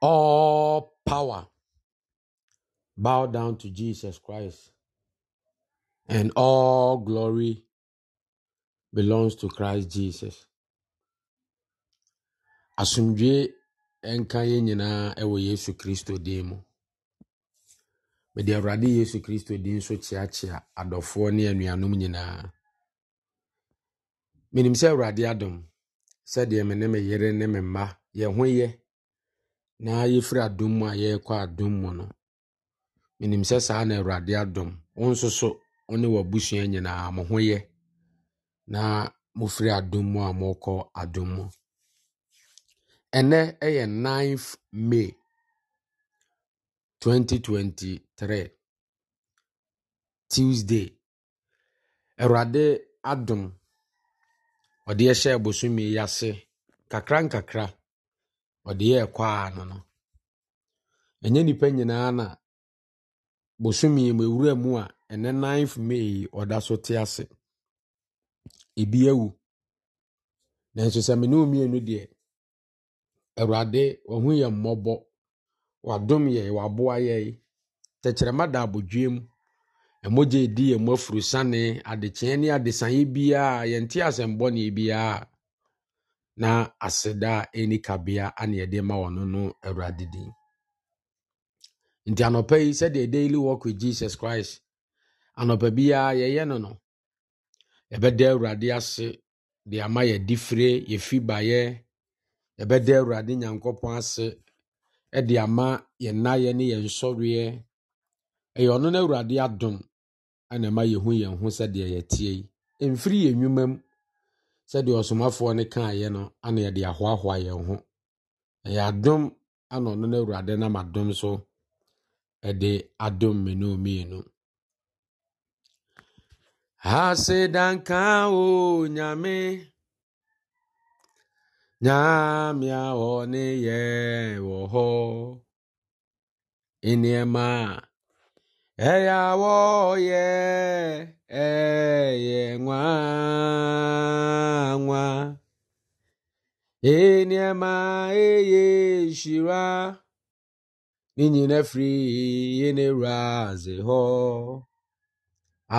All power bow down to Jesus Christ, and all glory belongs to Christ Jesus. Asomdwee nka yɛn nyinaa ɛwɔ Yesu Kristo din mu. Mede Awurade Yesu Kristo din nso kyeakyea adɔfoɔ ne anuanom nyinaa. Menim sɛ Awurade adom sɛdeɛ me ne me yere ne me mma yɛn ho yɛ. na yɛfiri adum a yɛrekɔ adom mu nọ menim sị saa na awurade adị wo nso ọ wo ne w'abusua nyinaa mo ho na mofiri adom mu a morekɔ adom mu ɛnɛ ɛyɛ 9th may 2023 tuesday awurade adom ɔde ɛhyɛ bosome ya ase kakra nkakra ɔde yɛɛ kwaa no no ɛnyɛ nnipa nyinaa na bosome mu ewura mu a ɛnɛ ninth may ɔda so te ase ebi awu nanso sɛ mene mmienu deɛ awurade ɔho yɛ mmɔbɔ wadom yɛ waboa yɛi tɛkyerɛma da abodwiem ɛmogye di yɛ mu afurusane adekyeɛ ne adesaeɛ biaa yɛnte asɛmbɔneɛ biara. na aseda a ɛni kabea ane yɛde ma wɔn no awurade din nti anɔpa yi sɛdeɛ daily walk with jesus christ anɔpa biara yɛyɛ no no yɛbɛda awurade ase de ama yɛdi fire yɛfi baeɛ yɛbɛda awurade nyankopɔn ase ɛde ama yɛn nnaeɛ ne yɛn nsɔreɛ ɛyɛ ɔno no awurade adom ɛna ɛma yɛhu yɛn ho sɛdeɛ yɛteɛ yi mfiri yɛn nnwuma mu sɛdeɛ ɔsomafoɔ no kaeɛ no ana yɛde ahoahoa yɛn ho ɛyɛ adom ana ɔno no awurade nam adom so ɛde adom mmienu mmienu asedanka o nyame nyame a ɔne yɛ wɔ hɔ e nneɛma a ɛyɛ awɔ yɛ Eye nwa nwa eniema eye shira n'ihi na efiri ihe na-eru azị hụ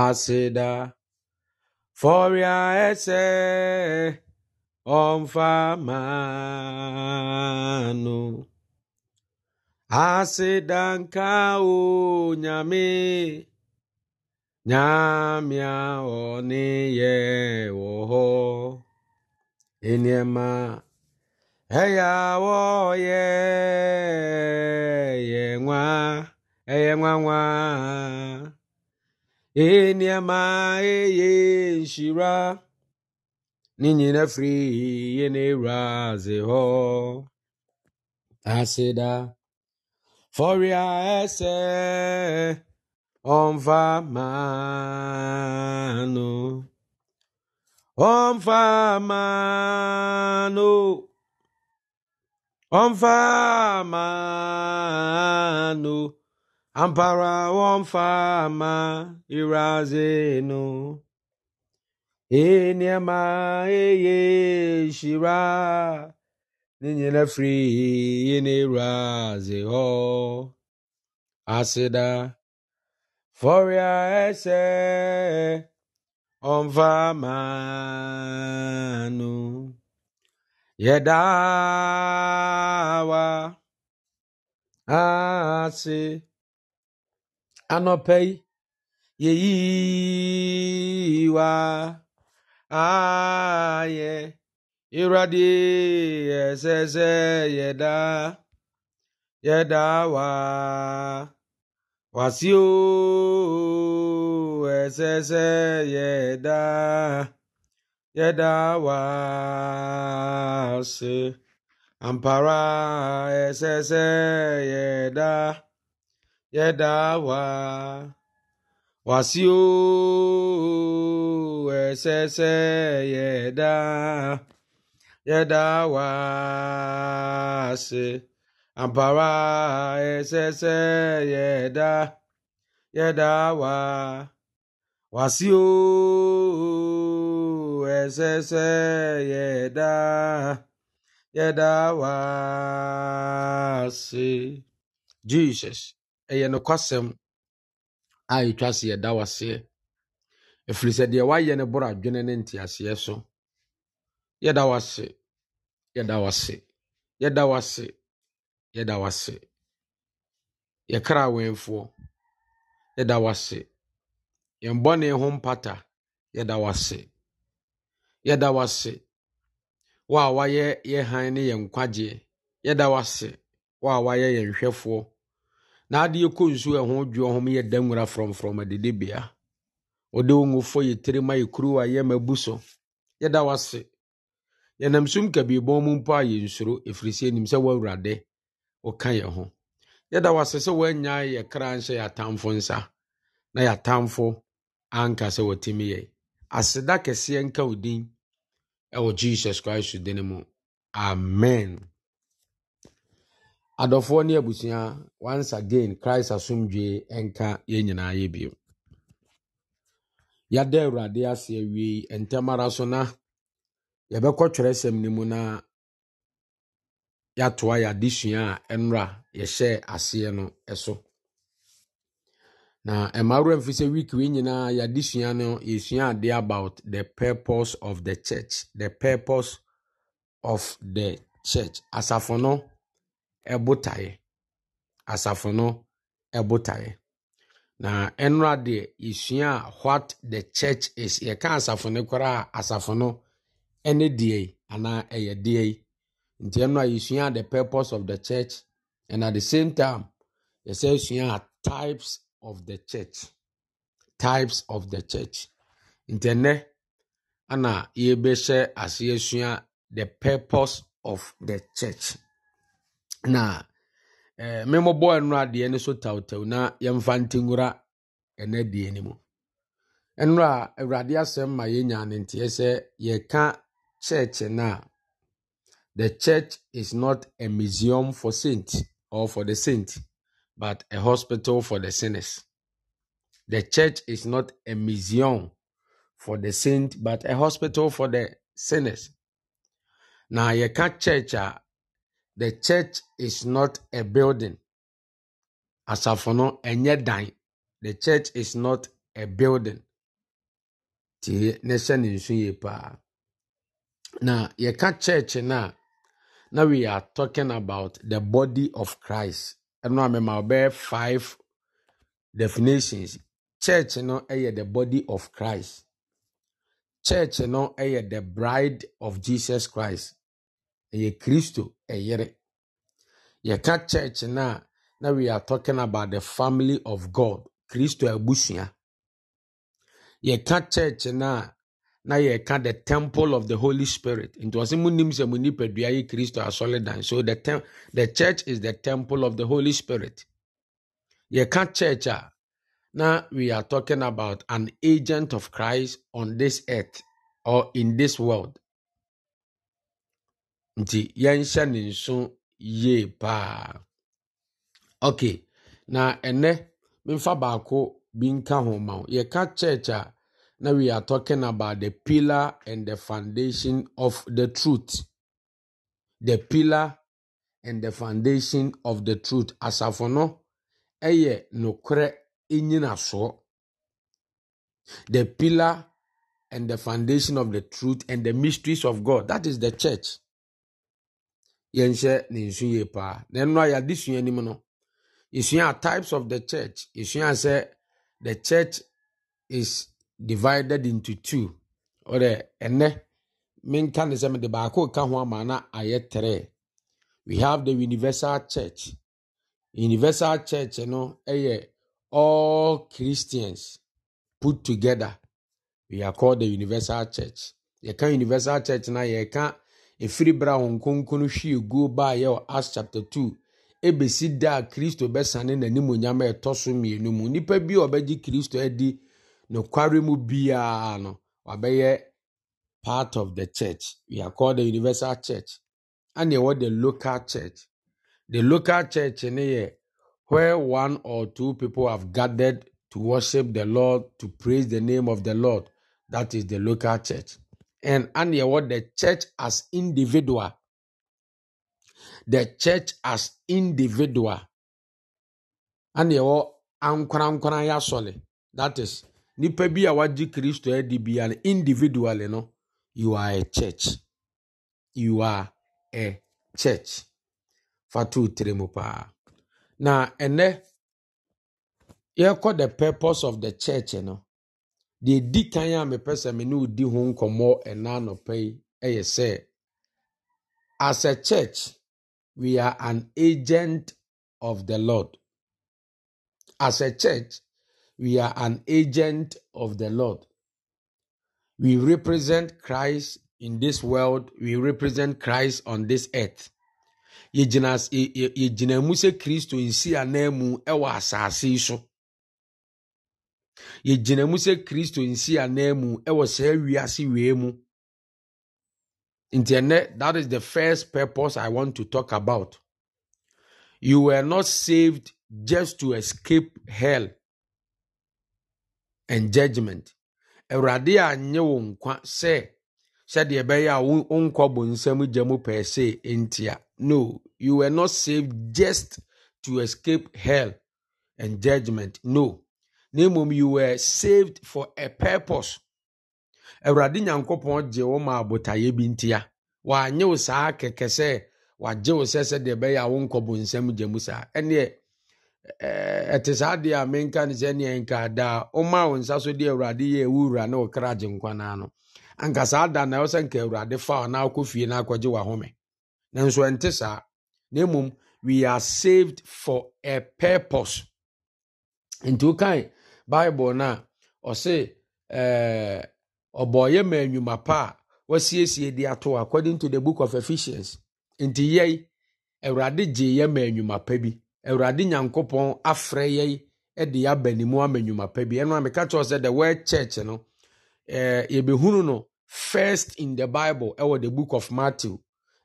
asịda fọrịa ese ọmfamanụ asịda nke ahụ nyame nyamiao ni yehoho eniema eyawo ye ye nwa eye nwa nwa eniema eye nshira ninyina firi ye na-eru azị hụ asịda foria ese Omvamano. Omvamano. Omvamano. Ampara omfama irazeno. Enyama e eye shira. Ninyina free in iraze ho. Aseda. fọrịa ese ọvamanụ yedawa asị anọpe yeyiwa aye iradi ezeze yeda yedawa. wàsíù ẹsẹsẹ yẹdá yẹdá wá ṣe àǹpara ẹsẹsẹ yẹdá yẹdá wá wàsíù ẹsẹsẹ yẹdá yẹdá wá ṣe. ampara ẹsẹsẹ yẹda yẹda wa wàsíò ẹsẹsẹ yẹda yẹda wa si. jesus ɛyɛ kwasem, a ɛtwa se yɛda waseɛ ɛfiri sɛ deɛ wayɛ no borɔ adwene ne nteaseɛ so yɛda wase yɛda wase yɛda wase yɛda wase yɛkra awɛmfoɔ yɛda wase yɛn bɔne ho mpata yɛda wase yɛda wase wo a wayɛ yɛ han ne yɛn nkwagyeɛ yɛda wase wo a wayɛ yɛn hwɛfoɔ na adeɛ kɔ nsu ɛho dwoɔ ho yɛda nwura frɔmfrɔm adidibea wode wo ngufo yɛ tiri ma yɛ kuruwa yɛ mabu so yɛda wase yɛnam sum kabiebɔn mu mpo a yɛnsuro ɛfiri sɛ nim sɛ woawurade wɔka yɛ ho yɛda wase sɛ woanya yɛ kra nhyɛ yɛ atamfo nsa na yɛ atamfo anka sɛ wɔtumi yɛ aseda kɛseɛ nka wo din ɛwɔ jesus christ din mu amen adɔfoɔ ne abusua once again christ asomdwee ɛnka yɛn nyinaa yɛ bio yɛada awurade ase awiei ntɛm ara so na yɛbɛkɔ twerɛsɛm no mu na yɛatoa yɛ adesua a ɛnora yɛhyɛ aseɛ no so na mmaa wura mfi sɛ week wei nyinaa yɛ no yɛsua adeɛ about the purpose of the church the purpose of the church asafo no ɛbotaeɛ asafo no ɛbotaeɛ na ɛnora deɛ yɛsua a what the church is yɛka asafo no koraa asafo no ɛne deɛ anaa ɛyɛ deɛ yi nti ɛno a yɛsua the purpose of the church and at the same time yɛsɛ sua types of the church types of the church nti ɛnɛ ana yɛbɛhyɛ ase yɛsua the purpose of the church na ɛɛ eh, mmemmɔbɔ ɛno adeɛ no so tawtaw na yɛmfa ntingura ɛnɛ deɛ no mu ɛno a awurade asɛm ma yɛnya ne nteɛ sɛ yɛka church no The church is not a museum for saints or for the saint, but a hospital for the sinners. The church is not a museum for the saint, but a hospital for the sinners. Now, you can't church. Uh, the church is not a building. Asafo no enye dan. The church is not a building. Ti ne hyɛ ne church na now we are talking about the body of Christ. And now I'm five definitions. Church, you know, the body of Christ. Church, you know, the bride of Jesus Christ. Ɛyɛ Kristo ɛyere. Yɛka church Now, now we are talking about the family of God. Kristo abusua. Yɛka church Now na ka the temple of the holy spirit nti ɔsɛ munim sɛ mo nipadua yɛ kristo asɔredan so the, tem the church is the temple of the holy spirit ka church a na we are talking about an agent of christ on this earth or in this world nti yɛnhyɛ ne nso yie paa okay na ɛnɛ memfa baako bi nka ho ma wo ka church a now we are talking about the pillar and the foundation of the truth. The pillar and the foundation of the truth. Asafo no, ɛyɛ nokorɛ naso. The pillar and the foundation of the truth and the mysteries of God. That is the church. Yenche ne nsu yie paa. Na ɛno a yɛade sua types of the church. Yɛsua sɛ the church is divided into two ɔdɛ ɛnɛ menka ne sɛ mede baako ka ho ama na we have the universal church universal church no know, all christians put together we are called the universal church yɛka universal church na yɛka ɛfiri berɛ bra wɔn kronkron hwie guo baa yɛ wɔ chapter 2 ɛbɛsi da kristo bɛsane n'animonyam a ɛtɔ so mmienu mu nnipa bi a kristo adi nokware mu biara no wabɛyɛ part of the church we are called the universal church and ɛwɔ the local church the local church in here where one or two people have gathered to worship the lord to praise the name of the lord that is the local church and and ɛwɔ the church as individual the church as individual and ɛwɔ ankorankora yɛ that is nipa bi a wagye kristo adi bia no individual, no you are a church you are a church fa to tire mu paa na ɛnɛ yɛkɔ the purpose of the church no deɛ di kan a mepɛ sɛ me ne odi ho nkɔmmɔ ɛna anɔpɛ yi ɛyɛ sɛ as a church we are an agent of the lord as a church We are an agent of the Lord. We represent Christ in this world. We represent Christ on this earth. yɛgyina yɛgyina mu sɛ kristo nsi anan mu ɛwɔ asase yi so yɛgyina mu sɛ kristo nsi anan ɛwɔ saa wiase wee mu nti that is the first purpose i want to talk about you were not saved just to escape hell and judgment awurade anyɛ wo nkwa sɛ sɛdeɛ ɛbɛyɛ a wo nkɔ bɔ nsɛm gya mu pɛɛ sɛ ntia no you were not saved just to escape hell and judgment no na mmom you were saved for a purpose awurade nyankopɔn gye wo ma abotaeɛ bi ntia wanyɛ wo saa kɛkɛ sɛ wagye wo sɛ sɛdeɛ ɛbɛyɛ a wo nkɔ bɔ nsɛm gya mu saa ɛneɛ Eh, ɛte saa deɛ a menka no sɛneɛ nka daa woma wo nsa so de awurade yɛ ɛwo wura ne ɔkra gye nkwanaa no anka saa da na ɛwɔ sɛ nka awurade fa na wokɔ fie na akɔgye wahome nanso ɛnte saa na mmom we are saved for a purpose nti wokae bible no a ɔse eh, ɔbɔɔyɛ ma nnwuma pa a wasiesie de ato according to the book of ephesians nti yɛi awurade gyee yɛ ma nnwuma pa bi awurade nyankopɔn afrɛ yɛn de aba ne mu ama nnwuma pa bi ɛno a meka kyerɛw sɛ the word church no eh, yɛbɛhunu no first in the bible ɛwɔ the book of matthew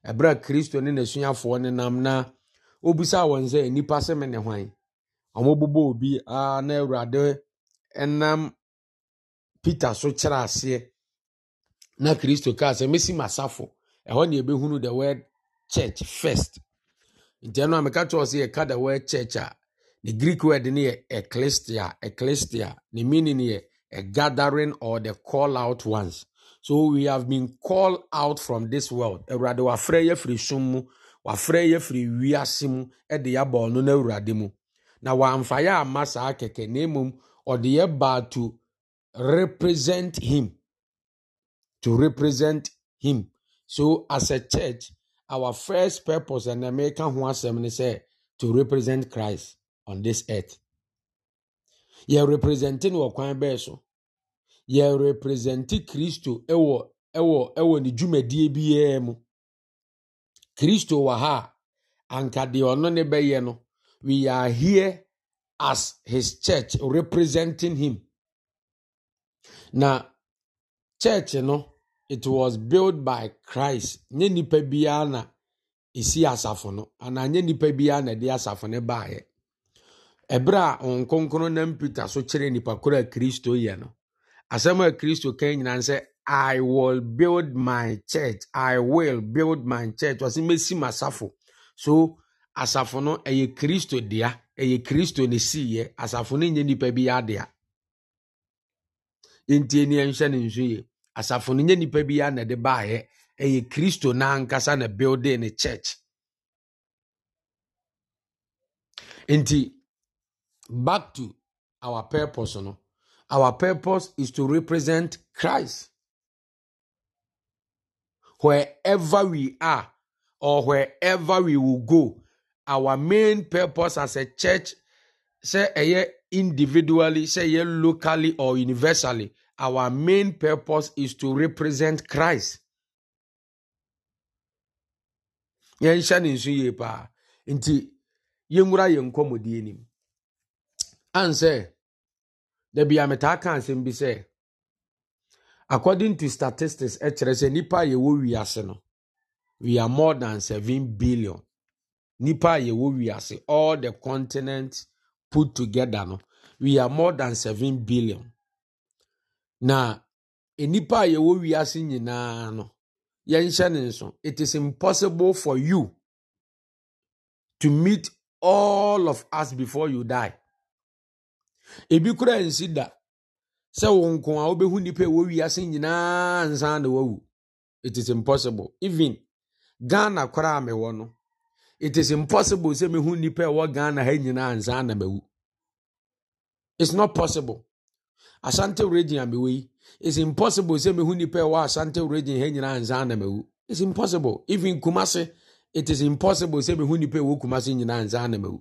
ɛberɛ a kristo ne n'asuafoɔ ne nam na obisaa wɔn sɛ nnipa se me ne hwan ɔmobobɔ obi a na awurade ɛnam peter so kyerɛ aseɛ na kristo kaa sɛ mesi m'asafo ɛhɔ ne yɛbɛhunu the word church first nti ɛno a meka kyerɛw sɛ da word church a the greek word ne yɛ ecclesia ecclesia ne meaning yɛ a gathering or the call out ones so we have been called out from this world awurade wafrɛ yɛ firi som mu wafrɛ yɛ firi wiase mu de yɛaba ɔno no awurade mu na wamfa yɛ amma saa kɛkɛ na mmom ɔde yɛ baa to represent him to represent him so as a church our first purpose and American ho asɛm eh, to represent Christ on this earth. Yɛ representing no wɔ kwan bɛɛ so. Yɛ represente Kristo ɛwɔ ɛwɔ ɛwɔ ne dwumadie biara mu. Kristo wɔ ha a anka deɛ ɔno ne bɛyɛ no we are here as his church representing him. Na church no. it was built by christ nye nipa biara na esi asafo no anaa nye nipa biara na ɛde asafo no baeɛ ɛberɛ a wɔn nam peter so kyerɛ nipa koro a kristo yɛ no asɛm a kristo kan nyinaa sɛ i will build my church i will build my church wɔsi mesi mu asafo so asafo no ɛyɛ kristo dea ɛyɛ kristo ne siiɛ asafo no nyɛ nipa biara dea ntie ni ne nso yie asafo no nyɛ nipa bi a na de baayɛ ɛyɛ kristo n'ankasa na building ne church nti back to our purpose no our purpose is to represent christ wherever we are or wherever we will go our main purpose as a church sɛ ɛyɛ individually sɛ ɛyɛ locally or universally our main purpose is to represent Christ. Yen shan nso yie paa nti yɛnwura yɛn nkɔmmɔdie nim an sɛ dabi a metaa bi sɛ according to statistics ɛkyerɛ sɛ nnipa a yɛwɔ no we are more than 7 billion nnipa a yɛwɔ wiase all the continents put together no we are more than 7 billion na nnipa a yɛwɔ wiase nyinaa no yɛnhyɛ ne nso it is impossible for you to meet all of us before you die ebi koraa nsi da sɛ wo nko a wobɛhu nnipa ɛwɔ wiase nyinaa nsan na wawu it is impossible even ghana koraa mewɔ no it is impossible sɛ mehu nnipa ɛwɔ ghana ha nyinaa nsan na mawu it's not possible asante region a mewɔ yi is impossible sɛ mehu nipa ɛwɔ asante region ha nyinaa nsa na mewu it's impossible even kumase it is impossible sɛ mehu nipa ɛwɔ kumase nyinaa nsa na mewu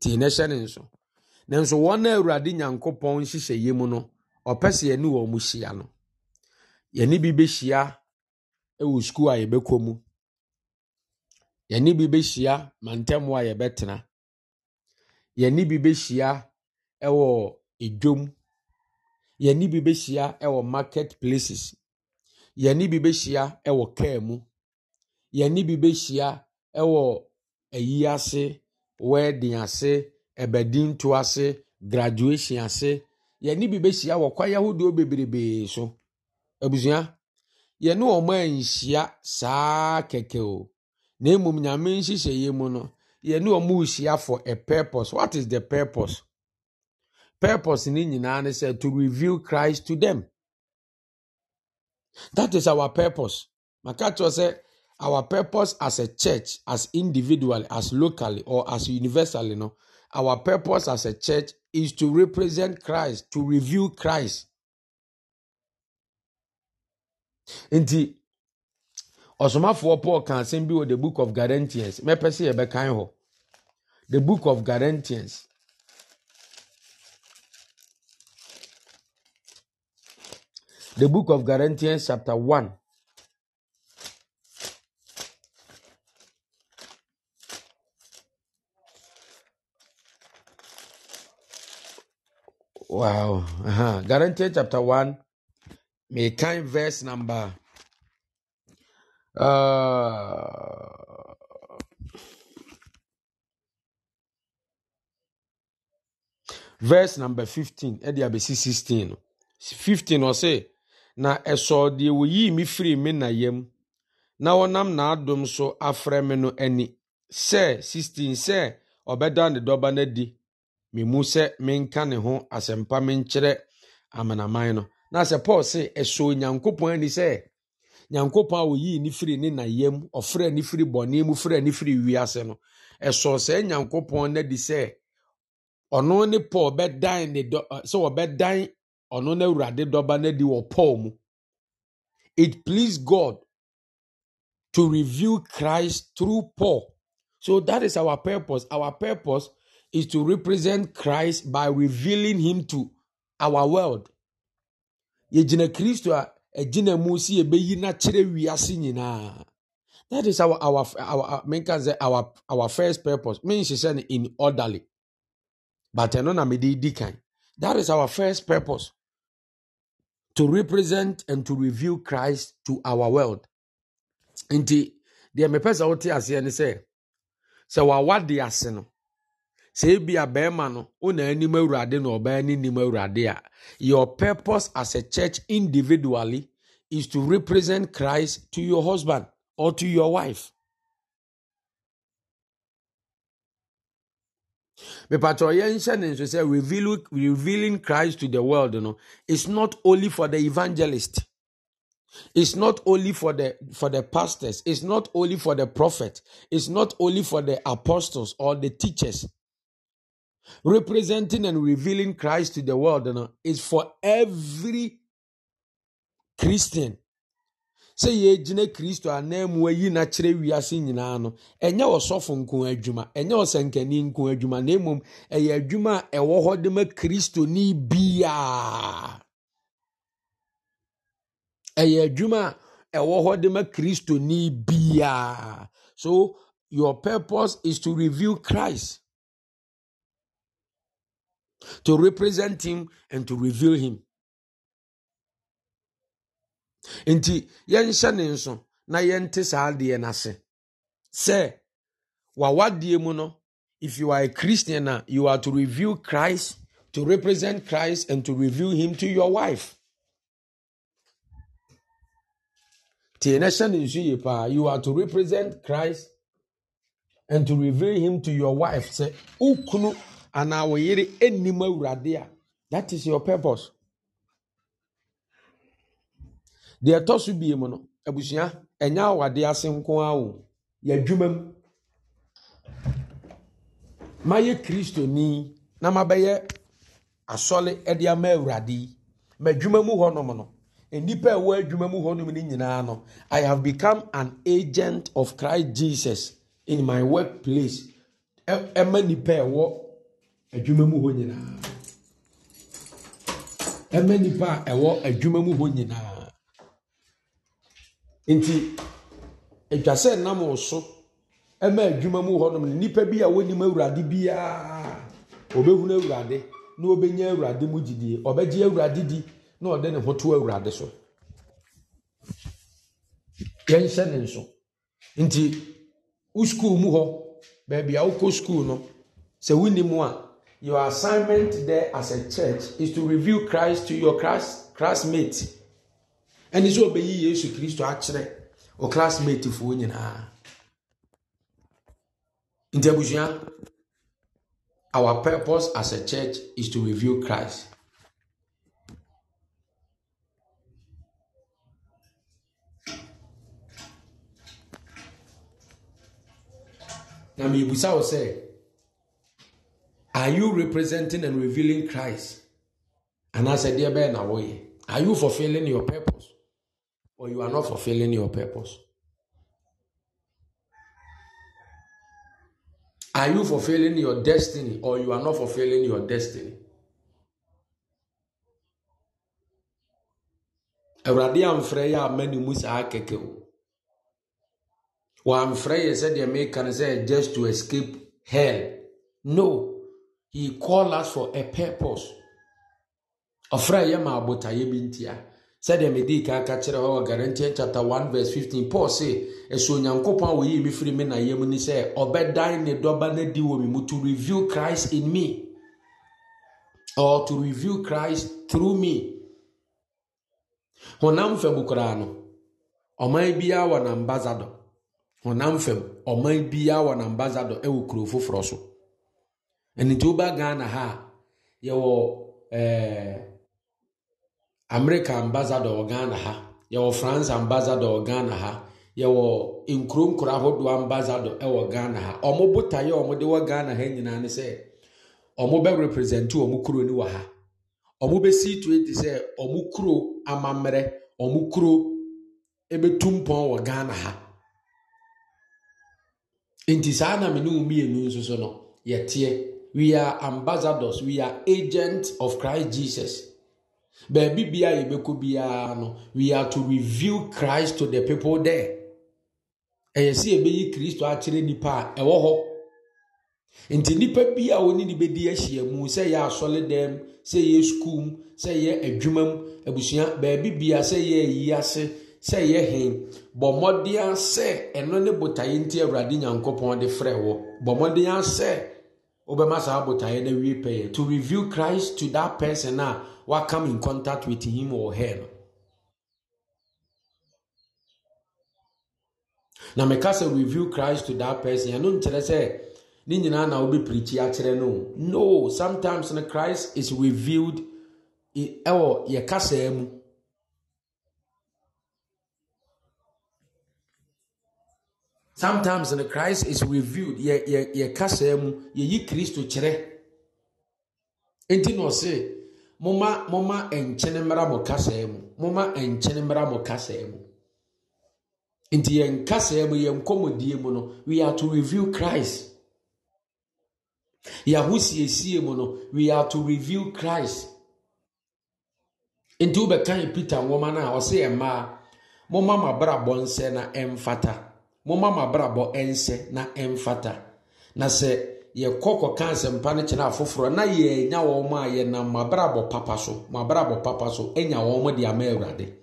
tii na ɛhyɛ ne nso na-ewu nanso wɔn a awurade nyankopɔn nhyehyɛ yie mu no ɔpɛ sɛ yɛne wɔn mu hyia no yɛne bi bɛhyia ɛwɔ e sukuu a yɛbɛkɔ mu yɛne bi bɛhyia mantam a yɛbɛtena yɛne bi bɛhyia ɛwɔ e edwom yɛne bi bɛhyia ɛwɔ market places yɛne bi bɛhyia ɛwɔ kaa mu yɛne bi bɛhyia ɛwɔ ayi ase wedding ase ɛbɛdinto ase graduation ase yɛne bi bɛhyia wɔ kwae ahodoɔ bebrebee so abusua yɛne wɔn anhyia saa kɛkɛ o na mmom nyame nhyehyɛeɛ mu no yɛne wɔn rehyia for a purpose what is the purpose. purpose in nyinaa ne sɛ to reveal christ to them that is our purpose Makatwa said, sɛ our purpose as a church as individually as locally or as universally no our purpose as a church is to represent christ to reveal christ nti ɔsomafoɔ paul ka asɛm bi wɔ the book of Galatians. mɛpɛ sɛ yɛbɛkan hɔ the book of Galatians. The book of Corinthians, chapter 1. Wow. Uh-huh. Corinthians chapter 1, may time verse number uh verse number 15 ɛde 16 sixteen. Fifteen. 15 say. na ɛsɔɔ deɛ wɔyii me firi me na yam na wɔnam n'adom so afrɛ me no ani sɛ 16 sɛ ɔbɛda ne dɔba no adi memu sɛ menka ne ho asɛmpa menkyerɛ amanaman no na sɛ paul se ɛsɔɔ nyankopɔn ani sɛ nyankopɔn a ɔyii ne firi ne na yam ɔfrɛ ne firi bɔne mu frɛ ne firi wiase no ɛsɔɔ sɛ nyankopɔn no adi sɛ ɔno ne paul bɛdan ne dɔ sɛ wɔbɛdan ɔno na awurade dɔba no adi wɔ paul mu it pleased god to reveal christ through paul so that is our purpose our purpose is to represent christ by revealing him to our world yɛgyina kristo a ɛgyina mu si yɛbɛyi n'akyerɛ wiase nyinaa that is our our our menka sɛ our our first purpose menhyehyɛ no in orderly but ɛno na mede di kan that is our first purpose to represent and to reveal Christ to our world. Nti deɛ mepɛ sɛ wote aseɛ ne sɛ sɛ wawa de ase no sɛ ebia bɛrima no wona anim awurade na ɔbaa ne nim awurade a your purpose as a church individually is to represent Christ to your husband or to your wife. mepatɔ yɛnhyɛ ne say, revealing, christ to the world you know, is not only for the evangelist it's not only for the for the pastors it's not only for the prophet it's not only for the apostles or the teachers representing and revealing christ to the world you know, is for every christian sɛ yɛgyina kristo a ananmu ayi na kyerɛ wiase nyinaa no ɛnyɛ ɔsɔfo nko adwuma ɛnyɛ ɔsɛnkani nko adwuma na mmom ɛyɛ adwuma a ɛwɔ hɔ de ma kristoni biaa ɛyɛ adwuma a ɛwɔ hɔ de ma kristoni biaa so your purpose is to reveal christ to represent him and to reveal him nti yɛnhyɛ ne nso na yɛnte saa adeɛ n'ase sɛ w'awadeɛ mu no if you are a christian a you are to reveal christ to represent christ and to reveal him to your wife tie na hyɛ ne nso yie paa you are to represent christ and to reveal him to your wife sɛ okunu anaa wɔyere anim awurade a that is your purpose. deɛ ɛtɔ so bie mu no abusua ɛnyɛ awade ase nko ara o yɛadwuma mu mayɛ kristoni na mabɛyɛ asɔle de ama awurade yi madwuma mu hɔnom no nnipa a ɛwɔ adwuma mu hɔnom no nyinaa no i have become an agent of christ jesus in my work place ɛma nnipa a ɛwɔ adwuma mu hɔ nyinaa ɛma nnipa a ɛwɔ adwuma mu hɔ nyinaa nti atwa sɛ nam wo so ma adwuma mu hɔnom no nnipa bi a wɔnim awurade biara ɔbɛhunu awurade na ɔbɛnya awurade mu gyidie ɔbɛgye awurade di na ɔde ne ho to awurade so yɛnhyɛ ne nso nti wo skuul mu hɔ baabi a wokɔ skuul no sɛ wonim a your assignment there as a church is to reveal christ to your class classmates ɛne sɛ ɔbɛyi yesu kristo akyerɛ o classmate foɔ nyinaa nti abusua our purpose as a church is to reveal christ na mebisa wo sɛ are you representing and revealing christ anaasɛ deɛ bɛyɛ na woyɛ are you fulfilling your purpose or you are not fulfilling your purpose? Are you fulfilling your destiny or you are not fulfilling your destiny? awurade amfrɛ yɛ ama ne mu saa kɛkɛ o wɔamfrɛ yɛ sɛdeɛ meka no sɛ just to escape hell no he call us for a purpose ɔfrɛ yɛ ma to bi ntia sɛdeɛ mede kan ka kyerɛ hɔ wɔ garintian chapter one verse fifteen paul se ɛsɛ onyankopɔn a wɔyii me firi me nayɛ mu ni sɛ ɔbɛdan ne dɔba no di wɔ me mu to reveal christ in me or to reveal christ through me honam fam koraa no ɔman biara wɔ n'ambassador honam fam ɔman biara wɔ n'ambassador ɛwɔ kuro foforɔ so ɛnitɛ ɔba ghana ha yɛwɔ ɛɛ. Eh, america ambasador ghana ha yɛwɔ france ambasador ghana ha yɛwɔ nkuro nkuro ahodoɔ ambasador wɔ ghana ha ɔmo botaeɛ ɔmo de wɔ ghana ha nyinaa ne sɛ ɔmo bɛ represent ɔmo kuro ni wɔ ha bɛ si to eti sɛ ɔmo kuro amammerɛ ɔmo kuro ebetu mpɔn wɔ ghana ha nti saa na mene mmienu nso so no yɛteɛ we are ambassadors we are agents of christ jesus baabi bia yɛbɛkɔ biara no we are to reveal christ to the people there ɛyɛ sɛ yɛbɛyi kristo akyerɛ nnipa a ɛwɔ hɔ nti nnipa bi a wɔne ne bɛdi ahyia mu sɛ yɛ asɔle dɛm sɛ yɛ sukuu mu sɛ yɛ adwuma mu abusua baabi bia sɛ yɛ ayi ase sɛ yɛ hen bɔ mmɔden sɛ ɛno ne botaeɛ nti awurade nyankopɔn de frɛ wɔ bɔ mmɔden sɛ wobɛma saa botaeɛ no awie pɛyɛ to reveal christ to that person a what come in contact with him or her na meka sɛ view christ to that person I nkyerɛ sɛ ne nyinaa na wobi pirikyi akyerɛ no no sometimes when christ is revealed ɛwɔ yɛ kasaa mu sometimes no christ is revealed ye ye yɛ kasaa mu Christ to chere. nti na say. momma momma nkyene mmara mo kasaa mu momma nkyene mmara mo kasaa mu nti yɛn kasaa mu yɛn kɔmɔdie mu we are to reveal christ yɛahosiesie mu no we are to reveal christ nti peter nwoma no a yɛ mmaa momma nsɛ na ɛmfata yɛkɔ kɔka asɛmpa no kyerɛ afoforɔ na yɛnya wɔn a yɛnam mabrabɔ papa so mabrabɔ papa so anya wɔn de ama awurade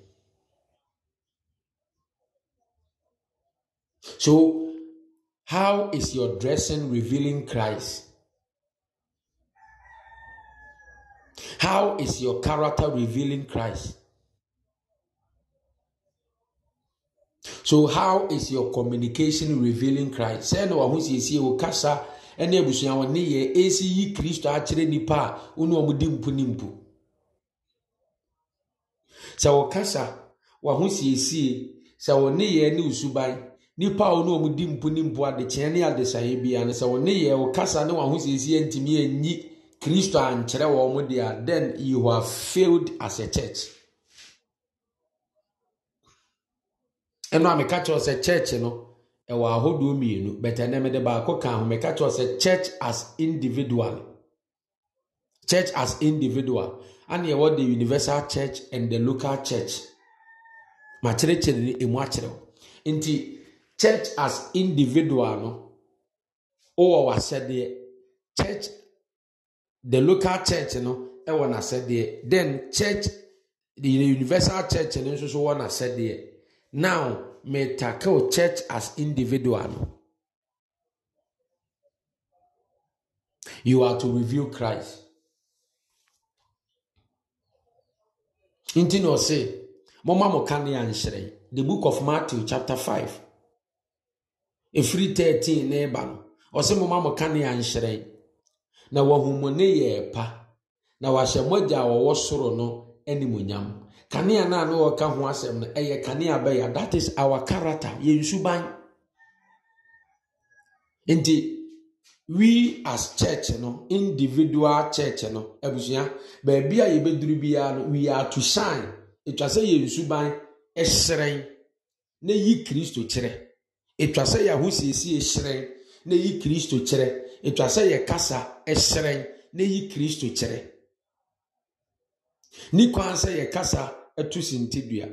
so how is your dressing revealing christ how is your character revealing christ so how is your communication revealing christ sɛ na wɔn wɔ kasa. ɛne abusua wɔn ne yɛ esi yi kristo akyerɛ nipa a wɔn wɔn di mpu ne mpu sɛ wɔkasa wɔho siesie sɛ wɔn ne yɛ ne osuban nipa a wɔn wɔn di mpu ne mpu adekyɛn ne adesaeɛ biara no sɛ wɔn ne yɛ wɔkasa ne wɔho siesie ntumi enyi kristo ankyerɛ wɔn deɛ then you have failed as a church. ɛnu a meka kyerɛ sɛ church no ɛwɔ ahodoɔ mmienu bɛtɛ ne mede baako ka ho meka kyerɛ sɛ church as individual church as individual ana ɛwɔ the universal church and the local church makyerɛkyerɛ ne ɛmu akyerɛw nti church as individual no wowɔ w'asɛdeɛ church the local church no ɛwɔ n'asɛdeɛ then church the universal church no nso so wɔ n'asɛdeɛ now meta tackle church as individual. You are to reveal Christ. Nti na ɔse, mɔma mo ka ne anhyerɛn. The book of Matthew chapter five. Efiri thirteen na ɛba no, ɔse mɔma mo ne anhyerɛn. Na wɔhumone yɛ pa, na wahyɛ mogya a wɔwɔ soro no animonyam. kanea no a na wɔka ho asɛm no ɛyɛ kanea bɛyɛ that is our character yɛn suban nti we as church no individual church no abusua baabi a yɛbɛduru biara no we are to shine etwa sɛ yɛn suban ɛhyerɛn na yi kristo kyerɛ etwa sɛ yɛn ahosiesie hyerɛn na yi kristo kyerɛ etwa sɛ yɛ kasa ɛhyerɛn na yi kristo kyerɛ ne kwan sɛ yɛ kasa ɛtu sintidua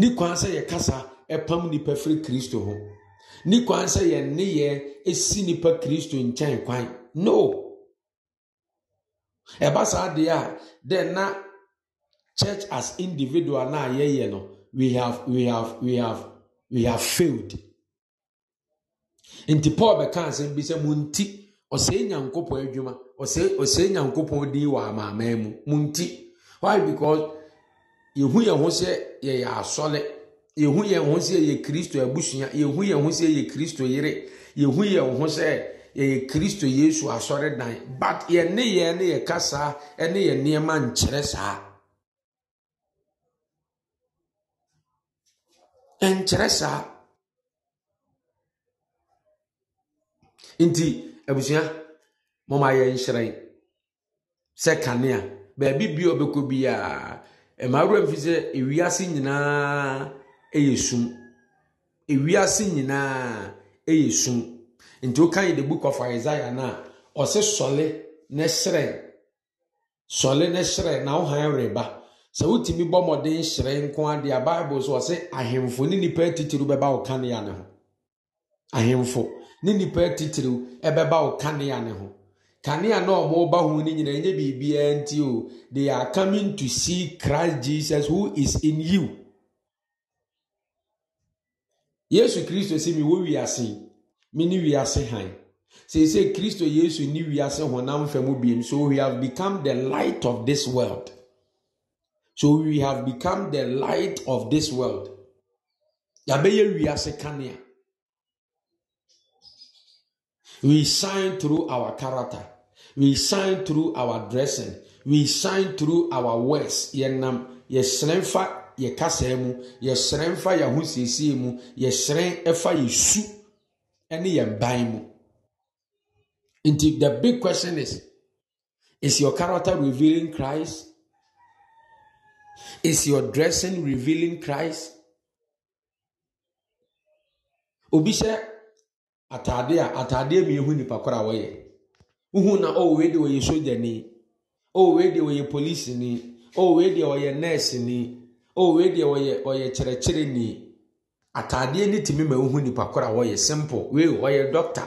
ne kwan sɛ yɛkasa ɛpam nipa firi kristo ho ne kwan sɛ yɛn nneyɛ esi nipa kristo nkyɛn kwan no ɛba saa deɛ a de na church as individual na yɛyɛ no we have we have we have we have failed nti paul bɛka asɛm bi sɛ mo nti ɔsɛe nyankopɔn adwuma ɔsɛe ɔsɛe nyankopɔn din wɔ amaaman mu mo nti why because yɛhu yɛn ho sɛ yɛyɛ asɔle yɛhu yɛn ho sɛ yɛyɛ kristo abusua yɛhu yɛn ho sɛ yɛyɛ kristo yere yɛhu yɛn ho sɛ yɛyɛ kristo yesu asɔre dan but yɛn ne yɛn ne yɛ kasa ne yɛn nneɛma nkyerɛ saa nkyerɛ saa nti abusua mɔmɔ ayɛ nhyerɛn sɛ kanea baabi bi a ɔbɛkɔ biara. mmaawura mfi sɛ ewiase nyinaa ɛyɛ sum ewiase nti o kan yi the book of na ɔsɛ sɔle ne srɛ sɔle ne srɛ na ɔhan reba sɛ wotumi bɔ mmɔden hyerɛn nko adi a bible so ɔsɛ ahemfo ne nipa atitiriw bɛba ɔkanea ne ho ahemfo ne kanea na ɔmoba ho no nyinaa ɛnyɛ biribiara nti o they are coming to see christ jesus who is in you yesu kristo sɛ mewɔ wiase me ne wiase han seesei kristo yesu ne wiase honam fa mu biom so we have become the light of this world so we have become the light of this world yɛabɛyɛ wiase kanea we shine through our character we shine through our dressing. We shine through our words. Yɛnam yɛsrɛ mfa yɛ kasa mu. Yɛsrɛ mfa yɛn ho siesie mu. Yɛsrɛ ɛfa yɛ su yɛn ban mu. Nti the big question is, is your character revealing Christ? Is your dressing revealing Christ? Obi hyɛ ataadeɛ a ataadeɛ mmienu nipa koro wɔyɛ. uhu na o wee onye wɔyɛ ni o wee onye wɔyɛ ni o wee onye wɔyɛ ni o wee de onye ɔyɛ ni ataadeɛ ne tumi ma uhu nipa koro a wɔyɛ simple wei wɔyɛ dɔkta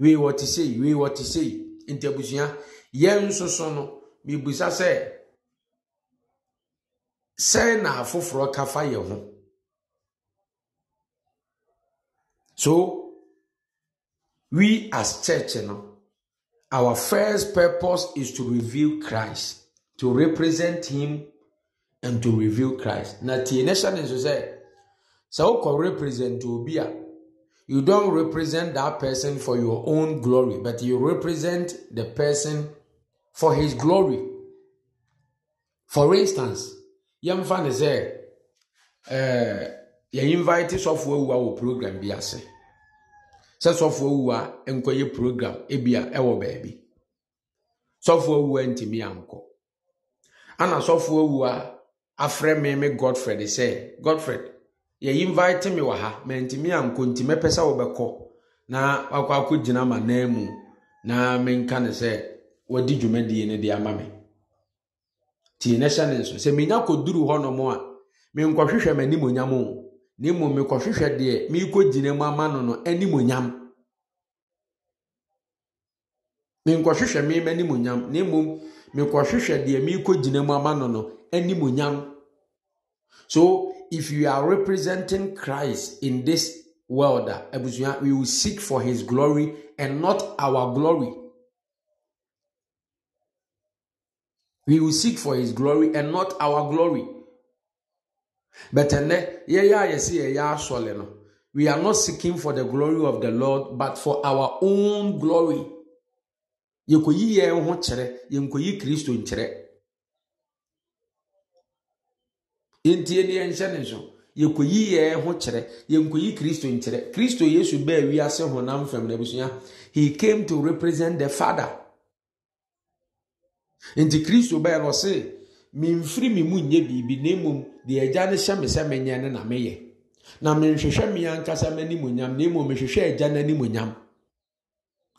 wei wɔte sei wei wɔte sei ntabusua yɛn nso so no mibusa sɛ sɛn na afoforɔ kafa yɛ ho so we as church no. Our first purpose is to reveal Christ, to represent Him, and to reveal Christ. Now, tie ne hyɛ ne represent obi you don't represent that person for your own glory, but you represent the person for his glory. For instance, yɛmfa ne sɛ, ɛɛ, eh, yɛ invite sɔfoɔ awua wɔ program bi say. sɛ sɔfo awu a nkɔyɛ program ebia ɛwɔ baabi sɔfo awu a ntumi ankɔ ana sɔfo awu a afrɛ me me godfred sɛ godfred yɛyi invite me wɔ ha mɛ ntumi ankɔ ntumi pɛ sɛ wɔbɛkɔ na wakɔ akɔ gyina ma nan mu na menka ne sɛ wɔdi dwumadie no de ama me tie ne hyɛ ne nso sɛ menya kɔduru hɔnom a menkɔhwehwɛ m'anim onyam o na mmom mekɔhwehwɛ deɛ merekɔ gyina mu ama no no animonyam menkɔhwehwɛ me ma animonyam na mmom mekɔhwehwɛ deɛ merekɔ gyina mu ama no no animonyam so if you are representing christ in this world ah, abusua we will seek for his glory and not our glory we will seek for his glory and not our glory But then, yeah, yeah, see, yeah, surely no. We are not seeking for the glory of the Lord, but for our own glory. You could hear a Kristo chair, you could hear Christ in chair. In the engineer, you could hear a whole chair, you could hear Christ in from the He came to represent the Father. In the Christ, you bear, or say, memfiri me mu nyɛ biribi na mmom deɛ agya no hyɛ me sɛ menyɛ no na meyɛ na menhwehwɛ me ankasa m'animonyam na mmom mehwehwɛ agya no animonyam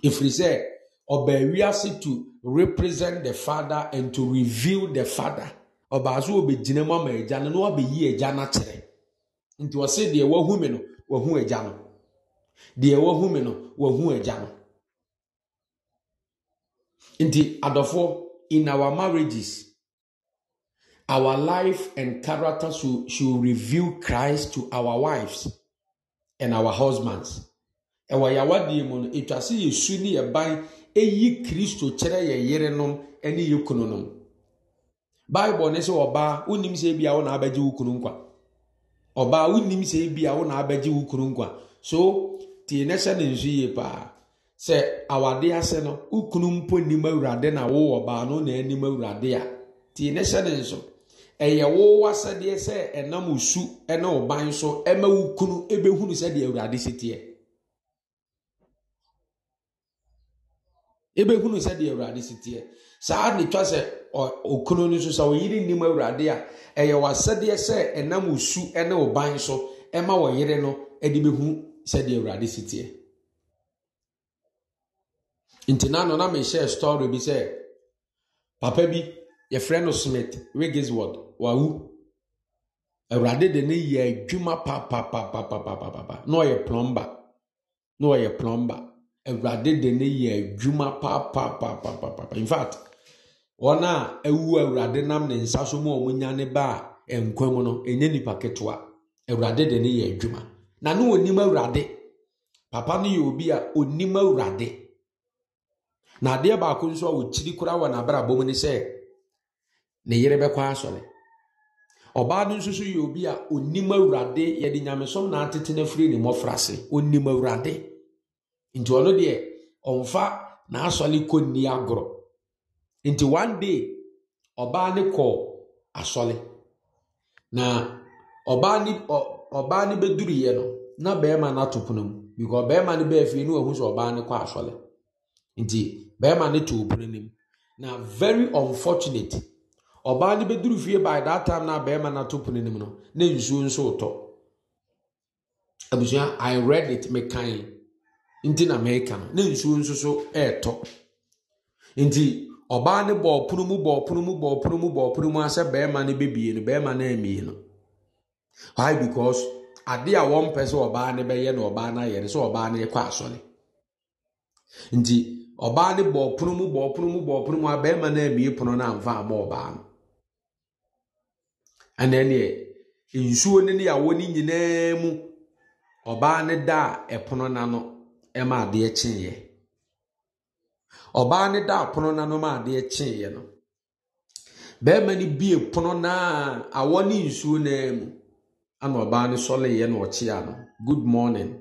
ɛfiri sɛ ɔbaa wiase to represent the father and to reveal the father ɔbaa so gyina mu ama agya no na wabɛyi agya no akyerɛ nti ɔse deɛ wahu me no wahu agya no deɛ wahu me no wahu agya no nti adɔfoɔ in our marriages Our life and character should, should reveal Christ to our wives and our husbands. Ɛwɔ yawadeɛ mu no, etwa sɛ yesu ne yɛban eyi Kristo kyerɛ yɛ yerenom ne yɛ kununom. Baịbụl ne sɛ ɔbaa wonim sɛ ebi a wo na abɛgye wo kunu nkwa. Ɔbaa wonim sɛ ebi a wo na kunu nkwa. So tie ne hyɛ ne nso yie paa. Sɛ awade ase no, wo kunu mpo nim awurade na wo ɔbaa no na anim awurade a tie ne hyɛ ne nso. ɛyɛ wo wasɛdeɛ sɛ ɛnam osu ɛna ɔban so ɛma wo kunu ɛbɛhunu sɛdeɛ awurade si teɛ ɛbɛhunu sɛdeɛ awurade si teɛ saa ne twa sɛ okunu no nso sɛ ɔyere nnim awurade a ɛyɛ wasɛdeɛ sɛ ɛnam osu ɛna ɔban so ɛma ɔyere no de bɛhu sɛdeɛ awurade si teɛ nti na no na mehyɛ story bi sɛ papa bi yɛfrɛ no smith wigisword wawu awurade de ne yɛ adwuma papapapapapapa na ɔyɛ plɔmba na ɔyɛ plɔmba awurade de ne yɛ adwuma papapapapapa in fact wɔn a ɛwu awurade nam ne nsa so mu a wɔn nya ne ba a nkwa mu no ɛnyɛ nipa ketewa awurade de ne yɛ adwuma na ne onim awurade papa no yɛ obi a onim awurade na adeɛ baako nso a wɔkyiri koraa wɔ n'abrabɔ mu ne sɛ ne yere bɛkɔ asɔre. ọbaa no nso so yɛ obi a onim awurade yɛde nyamesom na atete no afiri ne mmɔfra ase onim awurade nti ɔno deɛ ɔmfa n'asɔre kɔ nni agorɔ nti one day ɔbaa no kɔɔ asɔre na ɔbaa ne ɔbaa ne bɛduruyɛ no na barima no ato pono mu because barima no bɛɛ fie no wahu sɛ ɔbaa ne kɔ asɔre nti barima no to pono no mu na very unfortunate ọbaa no bɛduru fie by that time na bɛrima no ato pono no mu no na nsuo nso tɔ abusua i read it mekan nti na meka no na nsuo nso so ɛretɔ nti ɔbaa no bɔɔ pono mu bɔɔ pono mu bɔɔ pono mu bɔɔ pono mu asɛ bɛrima no bɛbie no bɛrima no amie no why because ade a wɔn pɛ sɛ ɔbaa no bɛyɛ na ɔbaa no ayɛ no sɛ ɔbaa no kɔ asɔre nti ɔbaa no bɔɔ pono mu bɔɔ pono mu bɔɔ pono mu a bɛrima no amie pono no amfa ama ɔbaa no ɛnna deɛ nsuo ne ne yawɔ ne nyinaa mu ɔbaa ne da a ɛpono n'ano ɛma adeɛ kyeeɛ ɔbaa ne da a pono n'ano ma adeɛ kyeeɛ no bɛrima no bie pono naa awɔ ne nsuo naa mu ɛna ɔbaa no sɔleeɛ na ɔkyea no good morning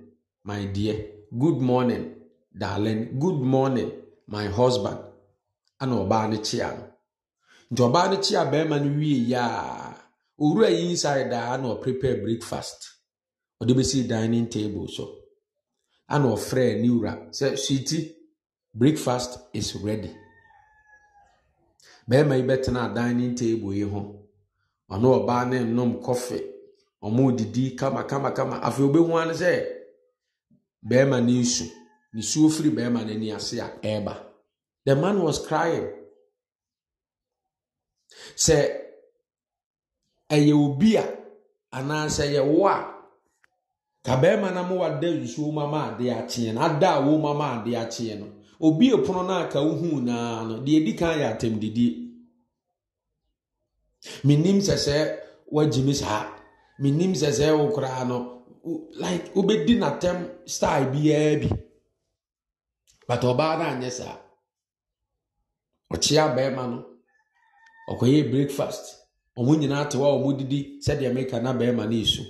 my dear good morning darling good morning my husband ɛna ɔbaa no kyea no nti ɔbaa no kyea bɛrima no wie yaa. owura yi inside a na prepare breakfast ɔde si dining table so ana ɔfrɛ ne wura sɛ sweeti breakfast is ready bɛrima yi bɛtena dining table yi ho ɔne ɔbaa ne nom kɔfe ɔmo didi kama kama kama afei obehu ano sɛ bɛrima ne nsu nsuo firi bɛrima ni ase a ɛreba the man was crying sɛ. ɛyɛ obi a anaasɛ yɛ wo a ka bɛrima na mo wada nsuo mu ama adeɛ akyeɛ no ada a wɔn mu ama adeɛ akyeɛ no obi epono no a ka wohu naa no deɛ edi kan yɛ atɛmdidie menim sɛ sɛ wagye me saa menim sɛ sɛ wo koraa no like wobɛdi n'atɛm style biara bi but ɔbaa no anyɛ saa ɔkyea bɛrima no ɔkɔyɛ breakfast ɔmo nyinaa te hɔ a ɔmo didi sɛdeɛ meka na bɛrima ne esu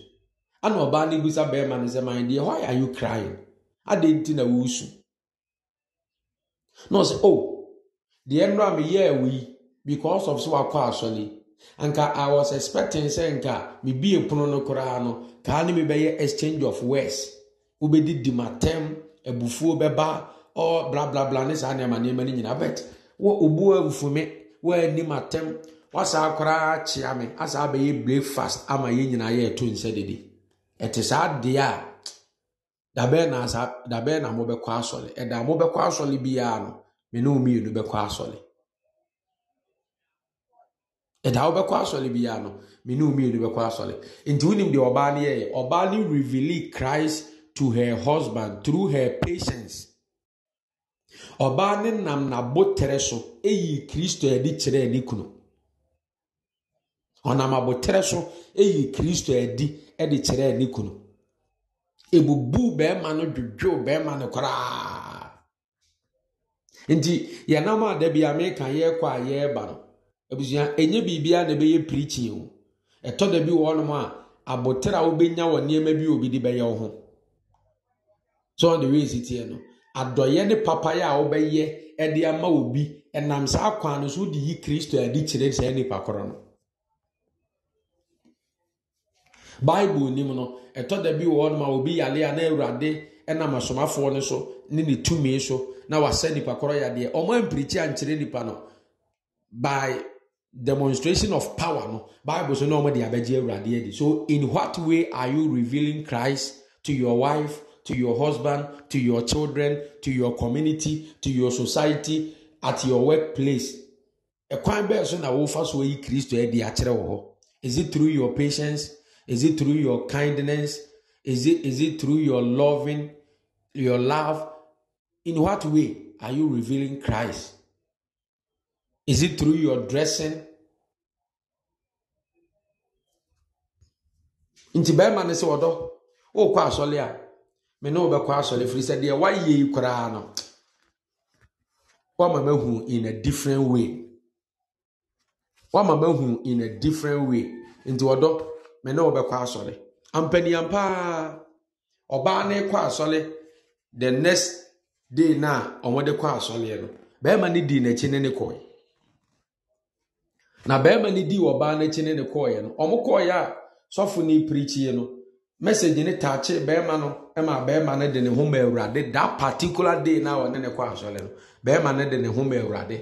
ana ɔbaa ne bisa bɛrima ne sɛ man deɛ why are you crying adeɛ nti na wusu na ɔsɛ oh deɛ nnura mi yɛ ɛwɔ yi because of so wakɔ asɔli anka i was expecting sɛ nka mi bie pono no koraa no kaa ne mi bɛyɛ exchange of words wobɛdi di ma tɛm ebufuo bɛba ɔ blablabla ne saa nneɛma nneɛma ne nyinaa but wɔ obuo ebufume wɔ anim atɛm. wasaa koraa kyea me asaa bɛyɛ breakfast ama yɛn nyinaa yɛɛto nsa didi ɛte saa adeɛ a dabɛn na asa dabɛn na mobɛkɔ asɔle ɛda mobɛkɔ asɔle biara no me ne mmienu bɛkɔ asɔle ɛda wobɛkɔ asɔle biara no me ne mmienu bɛkɔ asɔle nti wonim deɛ ɔbaa no yɛyɛ ɔbaa no reveal Christ to her husband through her patience ɔbaa no nam n'abotire so eyi Kristo adi kyerɛ ne kunu. ɔnam aboterɛ so eyi kristo adi de kyerɛ ne kunu ebubu bɛrima no dwodwow bɛrima no koraa nti yɛnam a da bia meka yɛrekɔ a yɛreba no abusua ɛnyɛ biribiara na ɛbɛyɛ pirikyi o ɛtɔ da bi wɔnom a aboterɛ a wobɛnya wɔ nneɛma bi obi de bɛyɛ wo ho so on the way siteɛ no adɔyɛ ne papayɛ a wobɛyɛ ɛde ama obi ɛnam saa kwan no so wode yi kristo adi kyerɛ saa nnipa koro no bible nim no ɛtɔ da bi wɔ hɔ nom a obi yale a na awurade nam asomafoɔ no so ne ne tumi so na wasɛ nipa korɔ yadeɛ ɔmo ampirikyi ankyerɛ nipa no by demonstration of power no bible so na ɔmo de abɛgye awurade adi so in what way are you revealing christ to your wife to your husband to your children to your community to your society at your workplace ɛkwan bɛɛ so na wofa so yi kristo adi akyerɛ wɔ hɔ is it through your patience is it through your kindness? Is it is it through your loving, your love? In what way are you revealing Christ? Is it through your dressing? nti bɛrima no sɛ ɔdɔ wokɔ asɔle a me ne wobɛkɔ asɔle firi sɛ deɛ woayɛ yi koraa no woama mahu in a different way woama mahu in a different way nti ɔdɔ me na ɔbɛkɔ asɔre ampaniam paa ɔbaa ne kɔ asɔre the next day na ɔmɔde kɔ asɔre no bɛrima di n'akyi ne ne kɔɛ na bɛrima di n'akyi ne ne kɔɛ no kɔɛ a sɔfo ne pirikyie no taakye no ma de ne ho day na ɔne ne kɔ asɔre no bɛrima no de ne ho ma awurade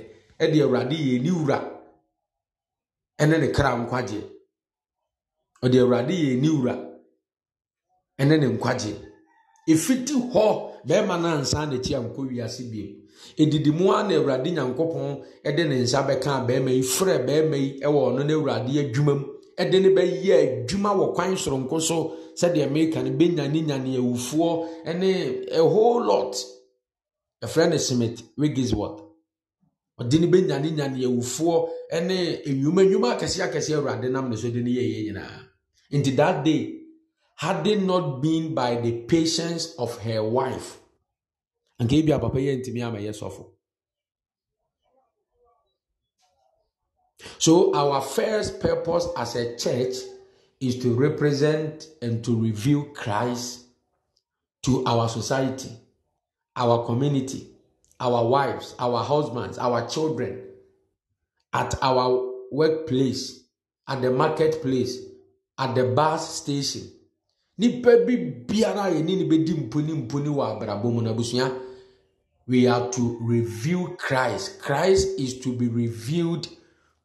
kra nkwagyeɛ ɔde awurade yɛ ne wura ɛne ne nkwagye Efiti hɔ bɛrima no ansa n'akyi ankɔ wiase biem ɛdidi mu a na awurade nyankopɔn de ne nsa bɛka bɛrima yi frɛ bɛrima yi wɔ ɔno no awurade adwuma mu ɛde ne bɛyɛ adwuma wɔ kwan soronko so sɛdeɛ mmerika no bɛnyane nyane awufoɔ ne a whole lot ɛfrɛ no simiti, wigisworth ɔde ne bɛnyane nyane awufoɔ ne nnwuma nnwuma akɛse akɛseɛ awurade nam ne so de ne yɛyɛ nyinaa Into that day, had it not been by the patience of her wife, and gave papa me, I'm a yes So, our first purpose as a church is to represent and to reveal Christ to our society, our community, our wives, our husbands, our children, at our workplace, at the marketplace, at the bus station nipa bi biara ni yɛne ne bɛdi mponi mponi wɔ abrabɔ mu no abusua we are to reveal christ christ is to be revealed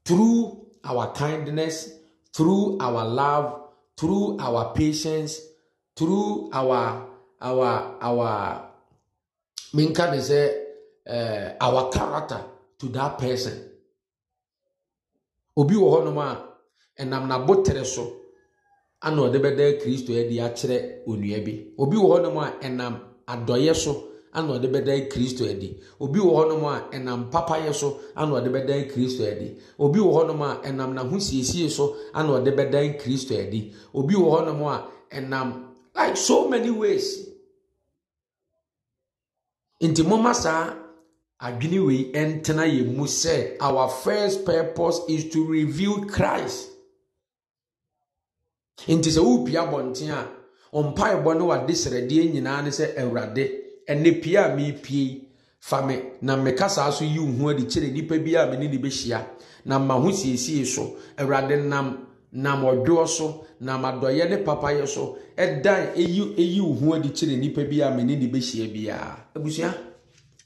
through our kindness through our love through our patience through our our our minka de sɛ uh, our character to that person obi wɔ hɔnom a ɛnam n'abotere so. ana ɔde bɛda kristo adi akyerɛ onua bi obi wɔ hɔnom a ɛnam adɔyɛ so ana ɔde bɛda kristo adi obi wɔ hɔnom a ɛnam papayɛ so ana ɔde bɛda kristo adi obi wɔ hɔnom a ɛnam n'ahosiesie so ana ɔde bɛda kristo adi obi wɔ hɔnom a ɛnam like so many ways nti moma saa adwene wei ɛntena yɛn mu sɛ our first purpose is to reveal christ nti sɛ worepi abɔnten a ɔmpaebɔ ne wade sradeɛ nyinaa ne sɛ awurade ɛnɛ pie a merepie fa me na meka saa so yi wo ho adi kyerɛ nnipa bi a mene ne bɛhyia na ma ho siesie so awurade nam nam ɔdwoɔ so nam adɔyɛ ne papayɛ so ɛdan eyi eyi wo ho adi kyerɛ nnipa bi a mene ne bɛhyia biara abusua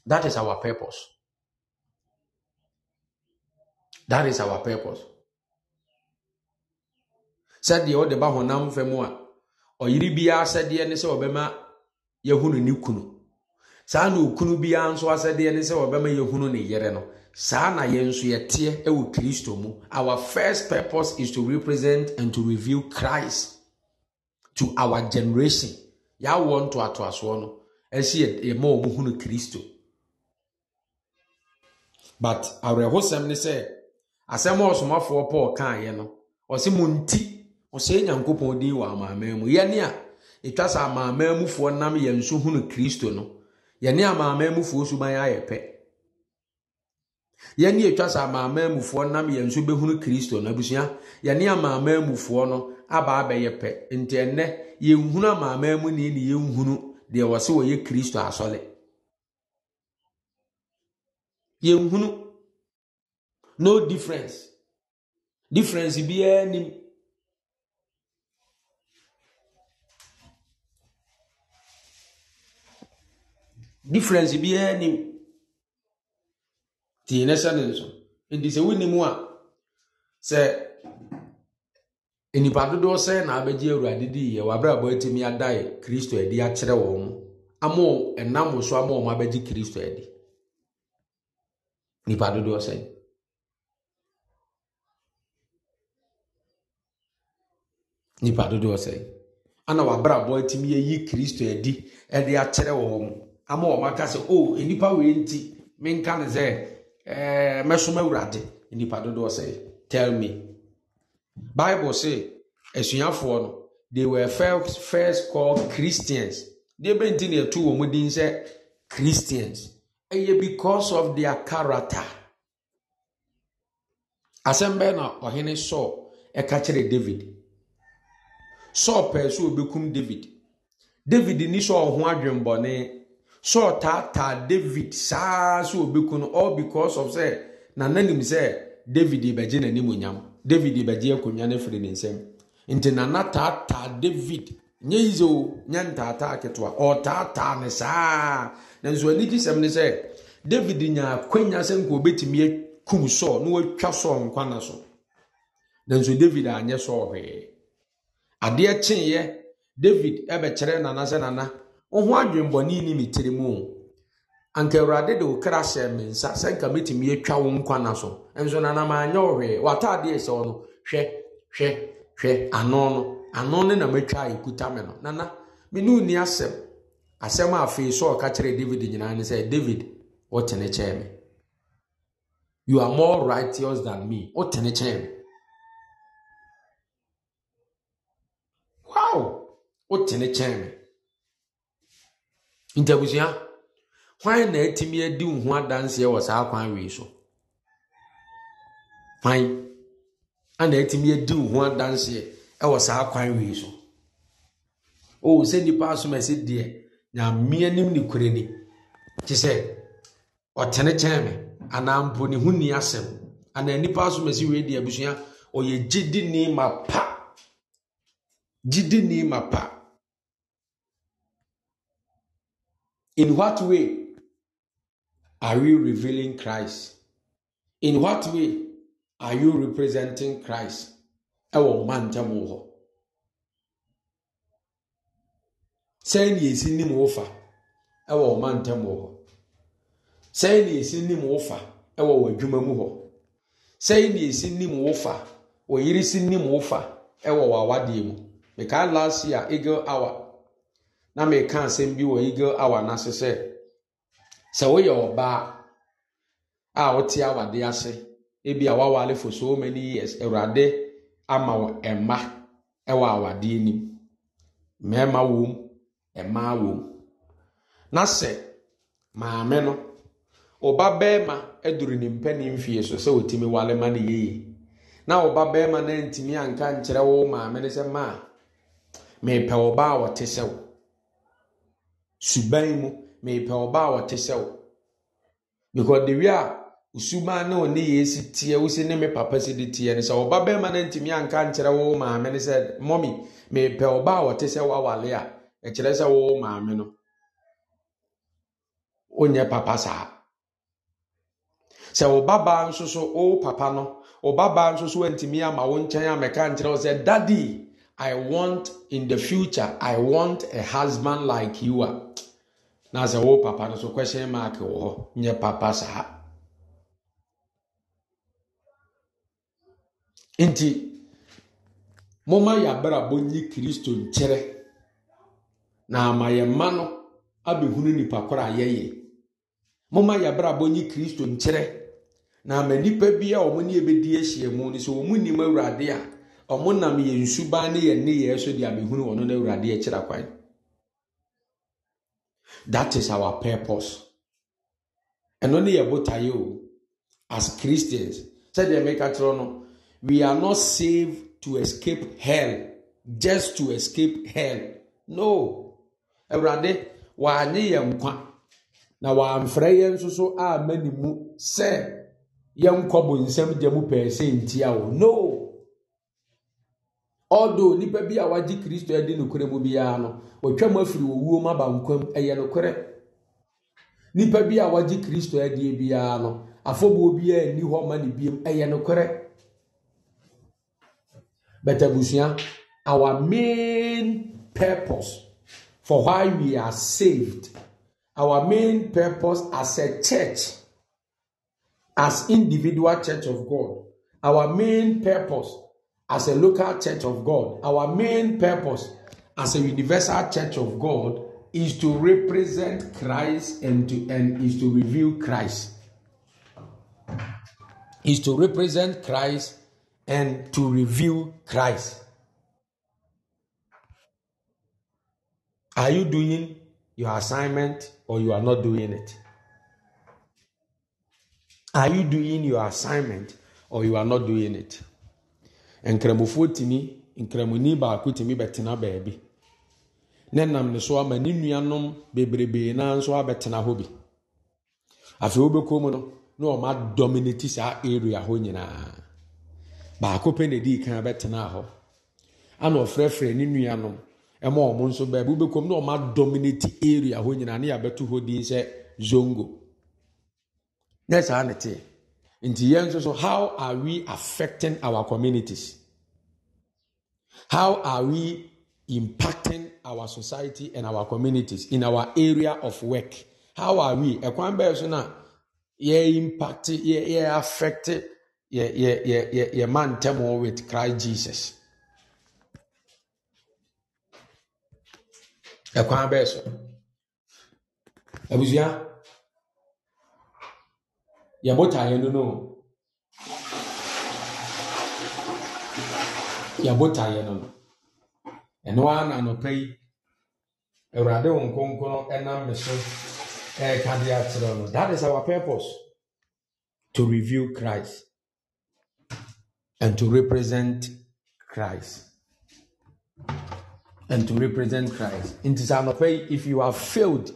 that is our purpose that is our purpose. sɛdeɛ ɔde ba honam fam a ɔyere biara sɛdeɛ ne sɛ ɔbɛma yɛhunu ne kunu saa na okunu biara nso asɛdeɛ ne sɛ ɔbɛma yɛhunu ne yere no saa na yɛn nso yɛteɛ wɔ kristo mu our first purpose is to represent and to reveal christ to our generation yɛawoɔ ntoatoasoɔ no ɛsi yɛma wɔn hunu kristo but awerɛhosɛm ne sɛ asɛm a ɔsomafoɔ paul kaeɛ no ɔsi mu nti ɔsɛe nyankopɔn din wɔ amaaman mu yɛne a ɛtwa sɛ amaaman mufoɔ nam yɛn so hunu kristo no yɛne amaaman mufoɔ suban ayɛ pɛ yɛne ɛtwa sɛ amaaman mufoɔ nam yɛn so bɛhunu kristo no abusua yɛne amaaman mufoɔ no aba abɛyɛ pɛ nti ɛnnɛ yɛnhunu amaaman mu ni ne yɛnhunu deɛ wɔsɛ wɔyɛ kristo asɔle yɛnhunu no difference difference biara nim difference biara nim tie ne hyɛ ne nso nti sɛ wonim a sɛ nnipa dodoɔ sɛ na abɛgye awurade di yɛ wabrabɔ atumi adae kristo adi akyerɛ wɔn ama ɛnam so ama wɔn abɛgye kristo adi nnipa dodoɔ sɛ nnipa dodoɔ sɛ ana wabrabɔ atumi ayi kristo adi de akyerɛ wɔn ama wɔn aka sɛ o nipa wei nti menka ne sɛ ɛɛ eh, mɛsoma awurade e nipa dodoɔ sɛ tell me bible say asuafoɔ no they were first, first called christians deɛ bɛnti na ɛtu wɔn din sɛ christians ɛyɛ because of their character asɛm bɛɛ na ɔhene sɔɔ ɛka kyerɛ david sɔɔ pɛɛ so obɛkum david david ni sɔɔ ho adwembɔne Saul taataa David saa so obeku no all because of sɛ na n'anim sɛ David ebɛgye n'anim onyam David ebɛgye akonnwa no firi ne nsam nti na taataa David nye yi nye o nye ntaataa ketewa ɔtaataa ne saa na nso anigye sɛm ne sɛ David nya akonnwa sɛ nka obetumi kum Saul na watwa nkwa na so na nso David anyɛ Saul hwee adeɛ kyeeɛ David ɛbɛkyerɛ nana sɛ nana. wo ho adwemmɔne ne me tiri mu anka awurade de wo kra hyɛ me nsa sɛ nka mɛtumi atwa wo na so nso nanam anyɛ wo hwee watadeɛ sɛ no hwɛ hwɛ hwɛ ano no ano ne na matwa a ɛkuta me no nana mene wo ni asɛm asɛm a afei sɛ ɔka kyerɛ david nyinaa ne sɛ david wotene kyɛɛ me you are more righteous than me wotene kyɛɛ me wow wotene kyɛɛ me ntabusua hwan na etimi adi wo ho adanseɛ wɔ saa kwan wei so hwan ana atumi adi wo ho adanseɛ wɔ saa kwan wei so o sɛ nnipa asom ɛsɛ deɛ nyamea nim ne kure ni te sɛ ɔtene kyɛn me anaa mpo ne ho nni asɛm anaa nnipa asom ɛsɛ wei deɛ abusua ɔyɛ gyidi ni ma pa gyidi ni ma pa In what way are you revealing Christ? In what way are you representing Christ? Ɛwɔ mma ntam wɔ ni Sɛn na esi nim wofa ɛwɔ mma ntam wɔ hɔ. Sɛn na esi nim wofa ɛwɔ wɔ adwuma mu hɔ. Sɛn na esi nim wofa wɔ yiri si nim wofa ɛwɔ wɔ awadeɛ mu. Mekaa last year eagle hour na meka asɛm bi wɔ eagle hour n'ase sɛ sɛ woyɛ ɔbaa a wote awade ase ebi a wawale for so many years awurade ama wɔ mma ɛwɔ awadeɛ nim mmarima wɔm mmaa wɔm na sɛ maame no ɔba barima aduru ne mpanin mfie so sɛ otumi wale ma ne yeye na ɔba barima no antumi anka nkyerɛ wo maame no sɛ maa mepɛ ɔbaa a wɔte sɛ wo suban mu mepɛ ɔbaa a ɔte sɛ wo because the way a osumaa na ɔne yɛ si teɛ wosi ne me papa si de teɛ no sɛ ɔba bɛrima no ntumi anka nkyerɛ wo maame no sɛ mɔmi mepɛ ɔbaa a ɔte sɛ wawale a ɛkyerɛ sɛ wo maame no onyɛ papa saa sɛ wo babaa nso so wo papa no wo babaa nso so antumi ama wo nkyɛn a mɛka nkyerɛ wo sɛ dadii I want in the future, I want a husband like you are. Na sɛ wo oh, papa no so question mark wɔ hɔ nye papa saa. Nti moma yɛabrabɔ nyi kristo nkyerɛ na ama yɛ mma no abɛhunu nnipa korɔ a yɛyɛ. Moma yɛabrabɔ nyi kristo nkyerɛ na ama nnipa bi a wɔn ne yɛbɛdi ahyia mu no sɛ wɔn nim awurade a wɔn nam yɛn suban ne yɛn nneyɛɛ so de abɛhunu wɔn no awurade akyira kwan that is our purpose ɛno ne yɛ botaeɛ o as christians sɛdeɛ meka kyerɛ no we are not saved to escape hell just to escape hell no awurade wɔanye yɛn nkwa na wɔamfrɛ yɛn nso so a mani mu sɛ yɛnkɔ nsɛm gya mu pɛɛ sɛ ntia o no ọdụ nnipa bi a wagye kristo adi nokorɛ mu biara no wɔtwam afiri owuo ma bankwam ɛyɛ nokorɛ nnipa bi a wagye kristo adie biara no afɔbuo biara nni hɔ ma ne biem ɛyɛ nokorɛ but abusua our main purpose for why we are saved our main purpose as a church as individual church of god our main purpose as a local church of God, our main purpose as a universal church of God is to represent Christ and to and is to reveal Christ. Is to represent Christ and to reveal Christ. Are you doing your assignment or you are not doing it? Are you doing your assignment or you are not doing it? nkramofoɔ tumi nkramoni baako tumi bɛtena baabi ne nam ne so ama ne nuanom bebrebee naa nso abɛtena hɔ bi afei wobɛkɔ mu no na ne dominate saa area hɔ nyinaa baako pɛ na dii kan bɛtena hɔ ana ɔfrɛfrɛ ne nuanom ɛma ɔmo nso baabi wobɛkɔ mu na ne dominate area hɔ nyinaa ne yɛabɛto hɔ din sɛ zongo ne saa ne teɛ nti yɛn nso so how are we affecting our communities how are we impacting our society and our communities in our area of work how are we ɛkwan bɛyɛ so na ye impact ye ye affect ye ye ye ye yɛ man tɛm with Christ Jesus ɛkwan bɛyɛ so abusua yɛbota yɛn no yɛbota yɛn no no ɛno ara na anɔpa yi awurade wɔn nkonkron ɛnam ne so ɛreka de akyerɛ no that is our purpose to review christ and to represent christ and to represent christ nti sɛ anɔpa yi if you have failed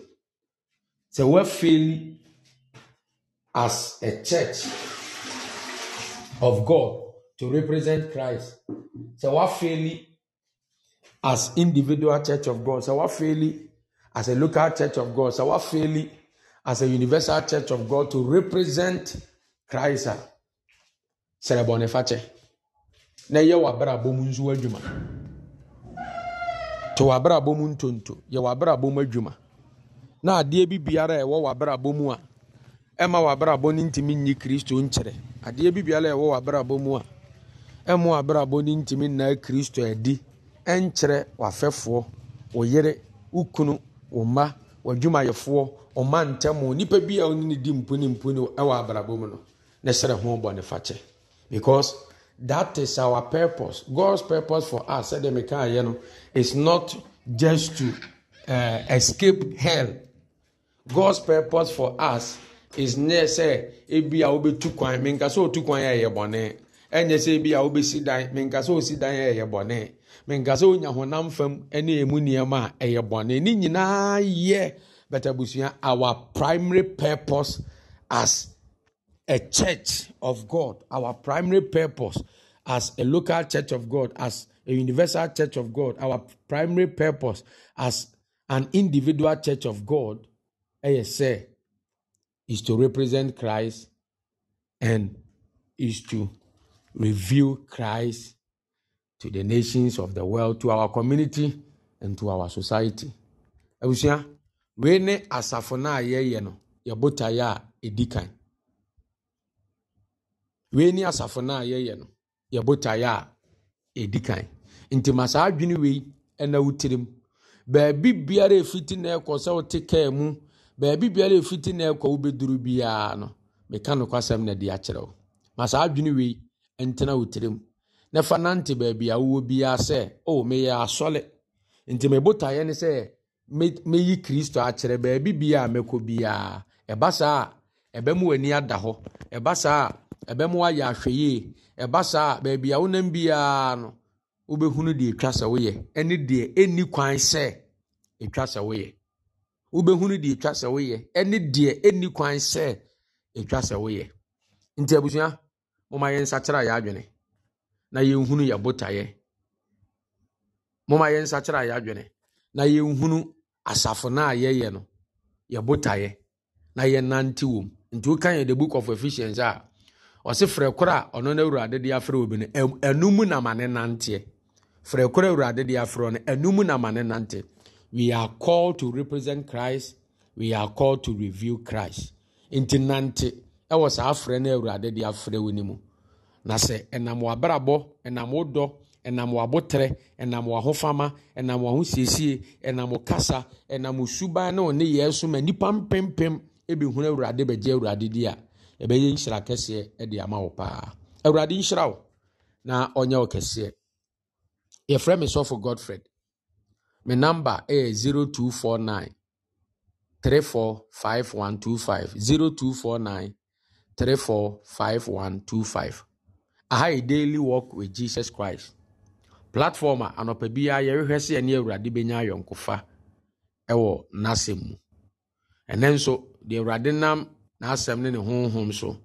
sɛ wɔafeli as a church of God to represent Christ. So what fairly as individual church of God. So what fairly as a local church of God. So what fairly as a universal church of God to represent Christ. Sere bɔnefakyɛ na yɛ w'abrabɔ mu adwuma to wabra mu ntonto wabra w'abrabɔ na adeɛ bi biara a ɛwɔ w'abrabɔ ɛma w'abrabɔ no ntumi nyi kristo nkyerɛ adeɛ bibiala ɛwɔ w'abrabɔ mu a ɛmo w'abrabɔ no ntumi nnaa kristo adi ɛnkyerɛ w'afɛfoɔ wo yere wo kunu wo mma w'adwumayɛfoɔ ɔma ntɛmo nipa bi a ɔne ne di mponi mponi ɛwɔ abrabɔ mu no ne srɛ ho bɔ ne fakyɛ because that is our purpose god's purpose for us sɛdeɛ meka ayɛ no is not just to uh, escape hell god's purpose for us is near sɛ ebi a wobɛtu kwan menka sɛ otu kwan a ɛyɛ bɔne ɛnyɛ sɛ ebi a wobɛsi dan menka sɛ osi dan a ɛyɛ bɔne menka sɛ onya honam fam ɛne emu nneɛma a ɛyɛ bɔne ne nyinaa yɛ bɛtɛ busua our primary purpose as a church of God our primary purpose as a local church of God as a universal church of God our primary purpose as an individual church of God ɛyɛ say is to represent Christ and is to reveal Christ to the nations of the world, to our community and to our society. Abusua, wei ne asafo no a yɛyɛ no, yɛbotaeɛ a ɛdi kan. Wei ne asafo no a yɛyɛ no, yɛbotaeɛ a ɛdi kan. Nti ma saa adwene wei ɛna wotirim. Baabi biara ɛfiti na ɛkɔ sɛ wote kaa mu baabi biara ɛfiti na ɛkɔ wobɛduru biara no meka nokwasɛm na de akyerɛ wo ma saa adwene wei ntena wo tirim na fa nante baabi a wowɔ biara sɛ o meyɛ asɔle nti mebotaeɛ ne sɛ mɛyi kristo akyerɛ baabi biara mɛkɔ biara ɛba saa a ɛbɛma w'ani ada hɔ ɛba saa a ɛbɛma woayɛ ahwɛyie ɛba saa a baabi a wonam biara no wobɛhunu deɛ ɛtwa sɛ woyɛ ɛne deɛ ɛnni kwan sɛ ɛtwa sɛ woyɛ wobɛhunu deɛ ɛtwa sɛ woyɛ ɛne deɛ ɛnni kwan sɛ ɛtwa sɛ woyɛ nti abusua moma yɛn nsakyerɛ yɛ adwene na yɛnhunu yɛ botaeɛ moma yɛn nsakyerɛ yɛ adwene na yɛnhunu asafo no a yɛyɛ no yɛ botaeɛ na yɛnante wom nti woka yɛ the book of efficiency a ɔse frɛ koro a ɔno no awurade de afrɛ obi no ɛno mu na ma ne nanteɛ frɛ koro awurade de afrɛ no ɛno mu na nanteɛ we are called to represent christ we are called to reveal christ nti nante ɛwɔ saa afrɛ no awurade de afrɛ wo no mu na sɛ ɛnam w'abrabɔ ɛnam wo dɔ ɛnam w'abotrɛ ɛnam w'ahofama ɛnam w'ahosiesie ɛnam w'kasa ɛnam w'suban na ɔne yɛ so ma nnipa mpempem ebihunu awurade bɛgye awurade di a ɛbɛyɛ nhyira kɛseɛ ɛde ama wo paa awurade nhyira wo na ɔnyɛ wo kɛseɛ yɛfrɛ me sɔfo godfred me a yɛ 0249 345125 0249 345125 aha yɛ daily walk with jesus christ platform a anɔpa biara yɛrehwɛ sɛ yɛne awurade bɛnya ayɔnkofa wɔ n'asɛm mu ɛnɛ nso deɛ awurade nam n'asɛm ne ne honhom so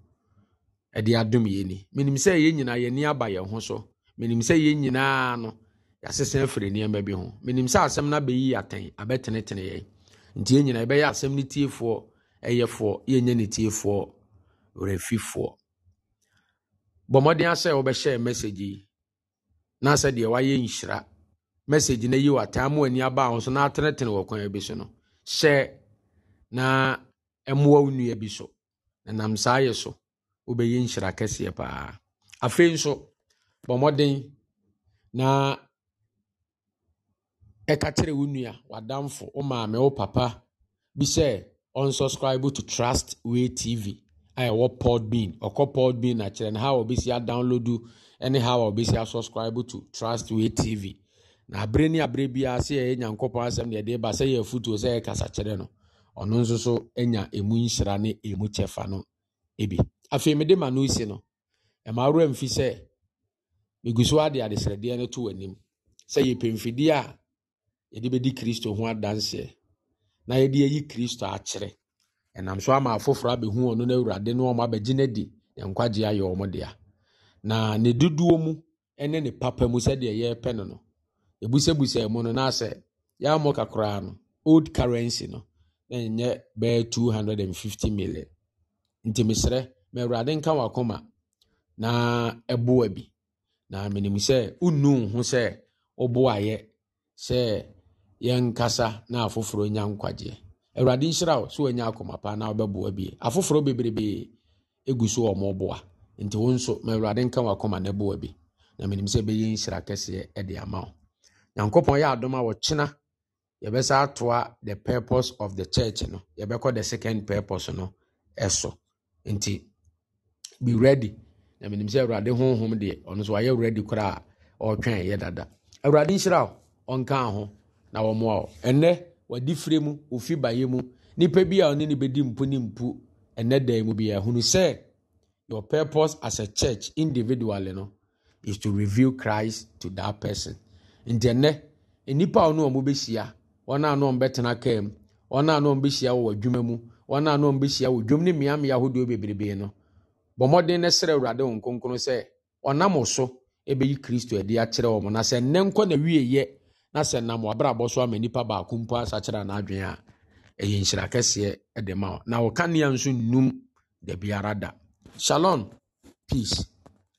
ɛde adom yɛ ni menim sɛ yɛn nyinaa yɛn ani aba yɛn so menim sɛ yɛn nyinaa yɛasesa afiri nneɛma bi ho menim sɛ asɛm no abɛyi atɛn abɛtenetene yɛn nti yɛn nyinaa yɛbɛyɛ asɛm tiefoɔ ɛyɛfoɔ yɛnyɛ ne tiefoɔ werɛfifoɔ bɔ asɛ wobɛhyɛ message yi na sɛ deɛ wayɛ nhyira message no yi wataa ma ani aba ho so na atenetene wɔ kwan bi so no hyɛ na ya wo nnua bi so na nam saa yɛ so wobɛyɛ nhyira kɛseɛ paa afei nso na ɛka kyerɛ wo nua w'adamfo wo maame wo papa bi sɛ to trust way tv a ɛwɔ podbean ɔkɔ podbean na kyerɛ no how ɔbɛsi adownload ne how ɔbɛsi asubscribe to trust way tv na abere ne abere biara sɛ yɛyɛ nyankopɔn asɛm deɛ ɛde ba sɛ yɛ afutuo sɛ yɛkasa kyerɛ no ɔno nso so anya ɛmu nhyira ne ɛmu kyɛfa no bi afei mede ma no si no ɛma mfi sɛ ade no to w'anim sɛ yɛpɛ mfidie yɛde bɛdi kristo ho adanseɛ na yɛde ayi kristo akyerɛ ɛnam so ama afoforɔ abɛhu ɔno no awurade no ɔma abɛgye no nkwagye ayɛ dea na ne dodoɔ mu ne ne papa mu sɛdeɛ yɛrepɛ no no ɛbusɛbusa mu no yɛamɔ old currency no na ɛnyɛ 250 million nti ma awurade nka wakoma na ɛboa bi na menim sɛ wonnu ho sɛ woboayɛ sɛ yɛnkasa na afoforɔ nya nkwagyeɛ awurade nhyira wo sɛ wanya akoma paa na wobɛboa bie afoforɔ bebrebee ɛgu so wɔ mɔboa nti wo nso ma awurade nka wakoma no boa bi na menim sɛ bɛyɛ nhyira kɛseɛ de ama wo nyankopɔn yɛ adom a wɔkyena yɛbɛsa atoa the purpose of the church no yɛbɛkɔ the second purpose no ɛso nti be ready na menim sɛ awurade honhom deɛ ɔno so wayɛ ready koraa ɔretwɛn yɛ dada awurade nhyira wo ɔnka ho na wɔmoa wo ɛnɛ wadi fire mu ofi baeɛ mu nnipa bi a ɔne ne bɛdi mpu ne mpu ɛnɛ dan mu bi ahunu sɛ your purpose as a church individual no is to reveal Christ to that person nti ɛnɛ nnipa a ɔno a wɔbɛhyia wɔn a no ɔmbɛtena kaa mu wɔn a no ɔmbɛhyia wɔ adwuma mu wɔn a no ɔmbɛhyia wɔ dwom ne mmeammea ahodoɔ bebrebe no bɔ mmɔden ne srɛ awurade wɔn nkonkron sɛ ɔnam so ɛbɛyi kristo adi akyerɛ wɔn na sɛ nnɛ nkɔ na wie yɛ na sɛ nam wabrabɔ so ama nipa baako mpo asakyerɛ n'adwene a ɛyɛ nhyira kɛseɛ de ma wo na wo kanea nso nnum da da shalom peace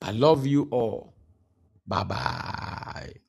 i love you all bye bye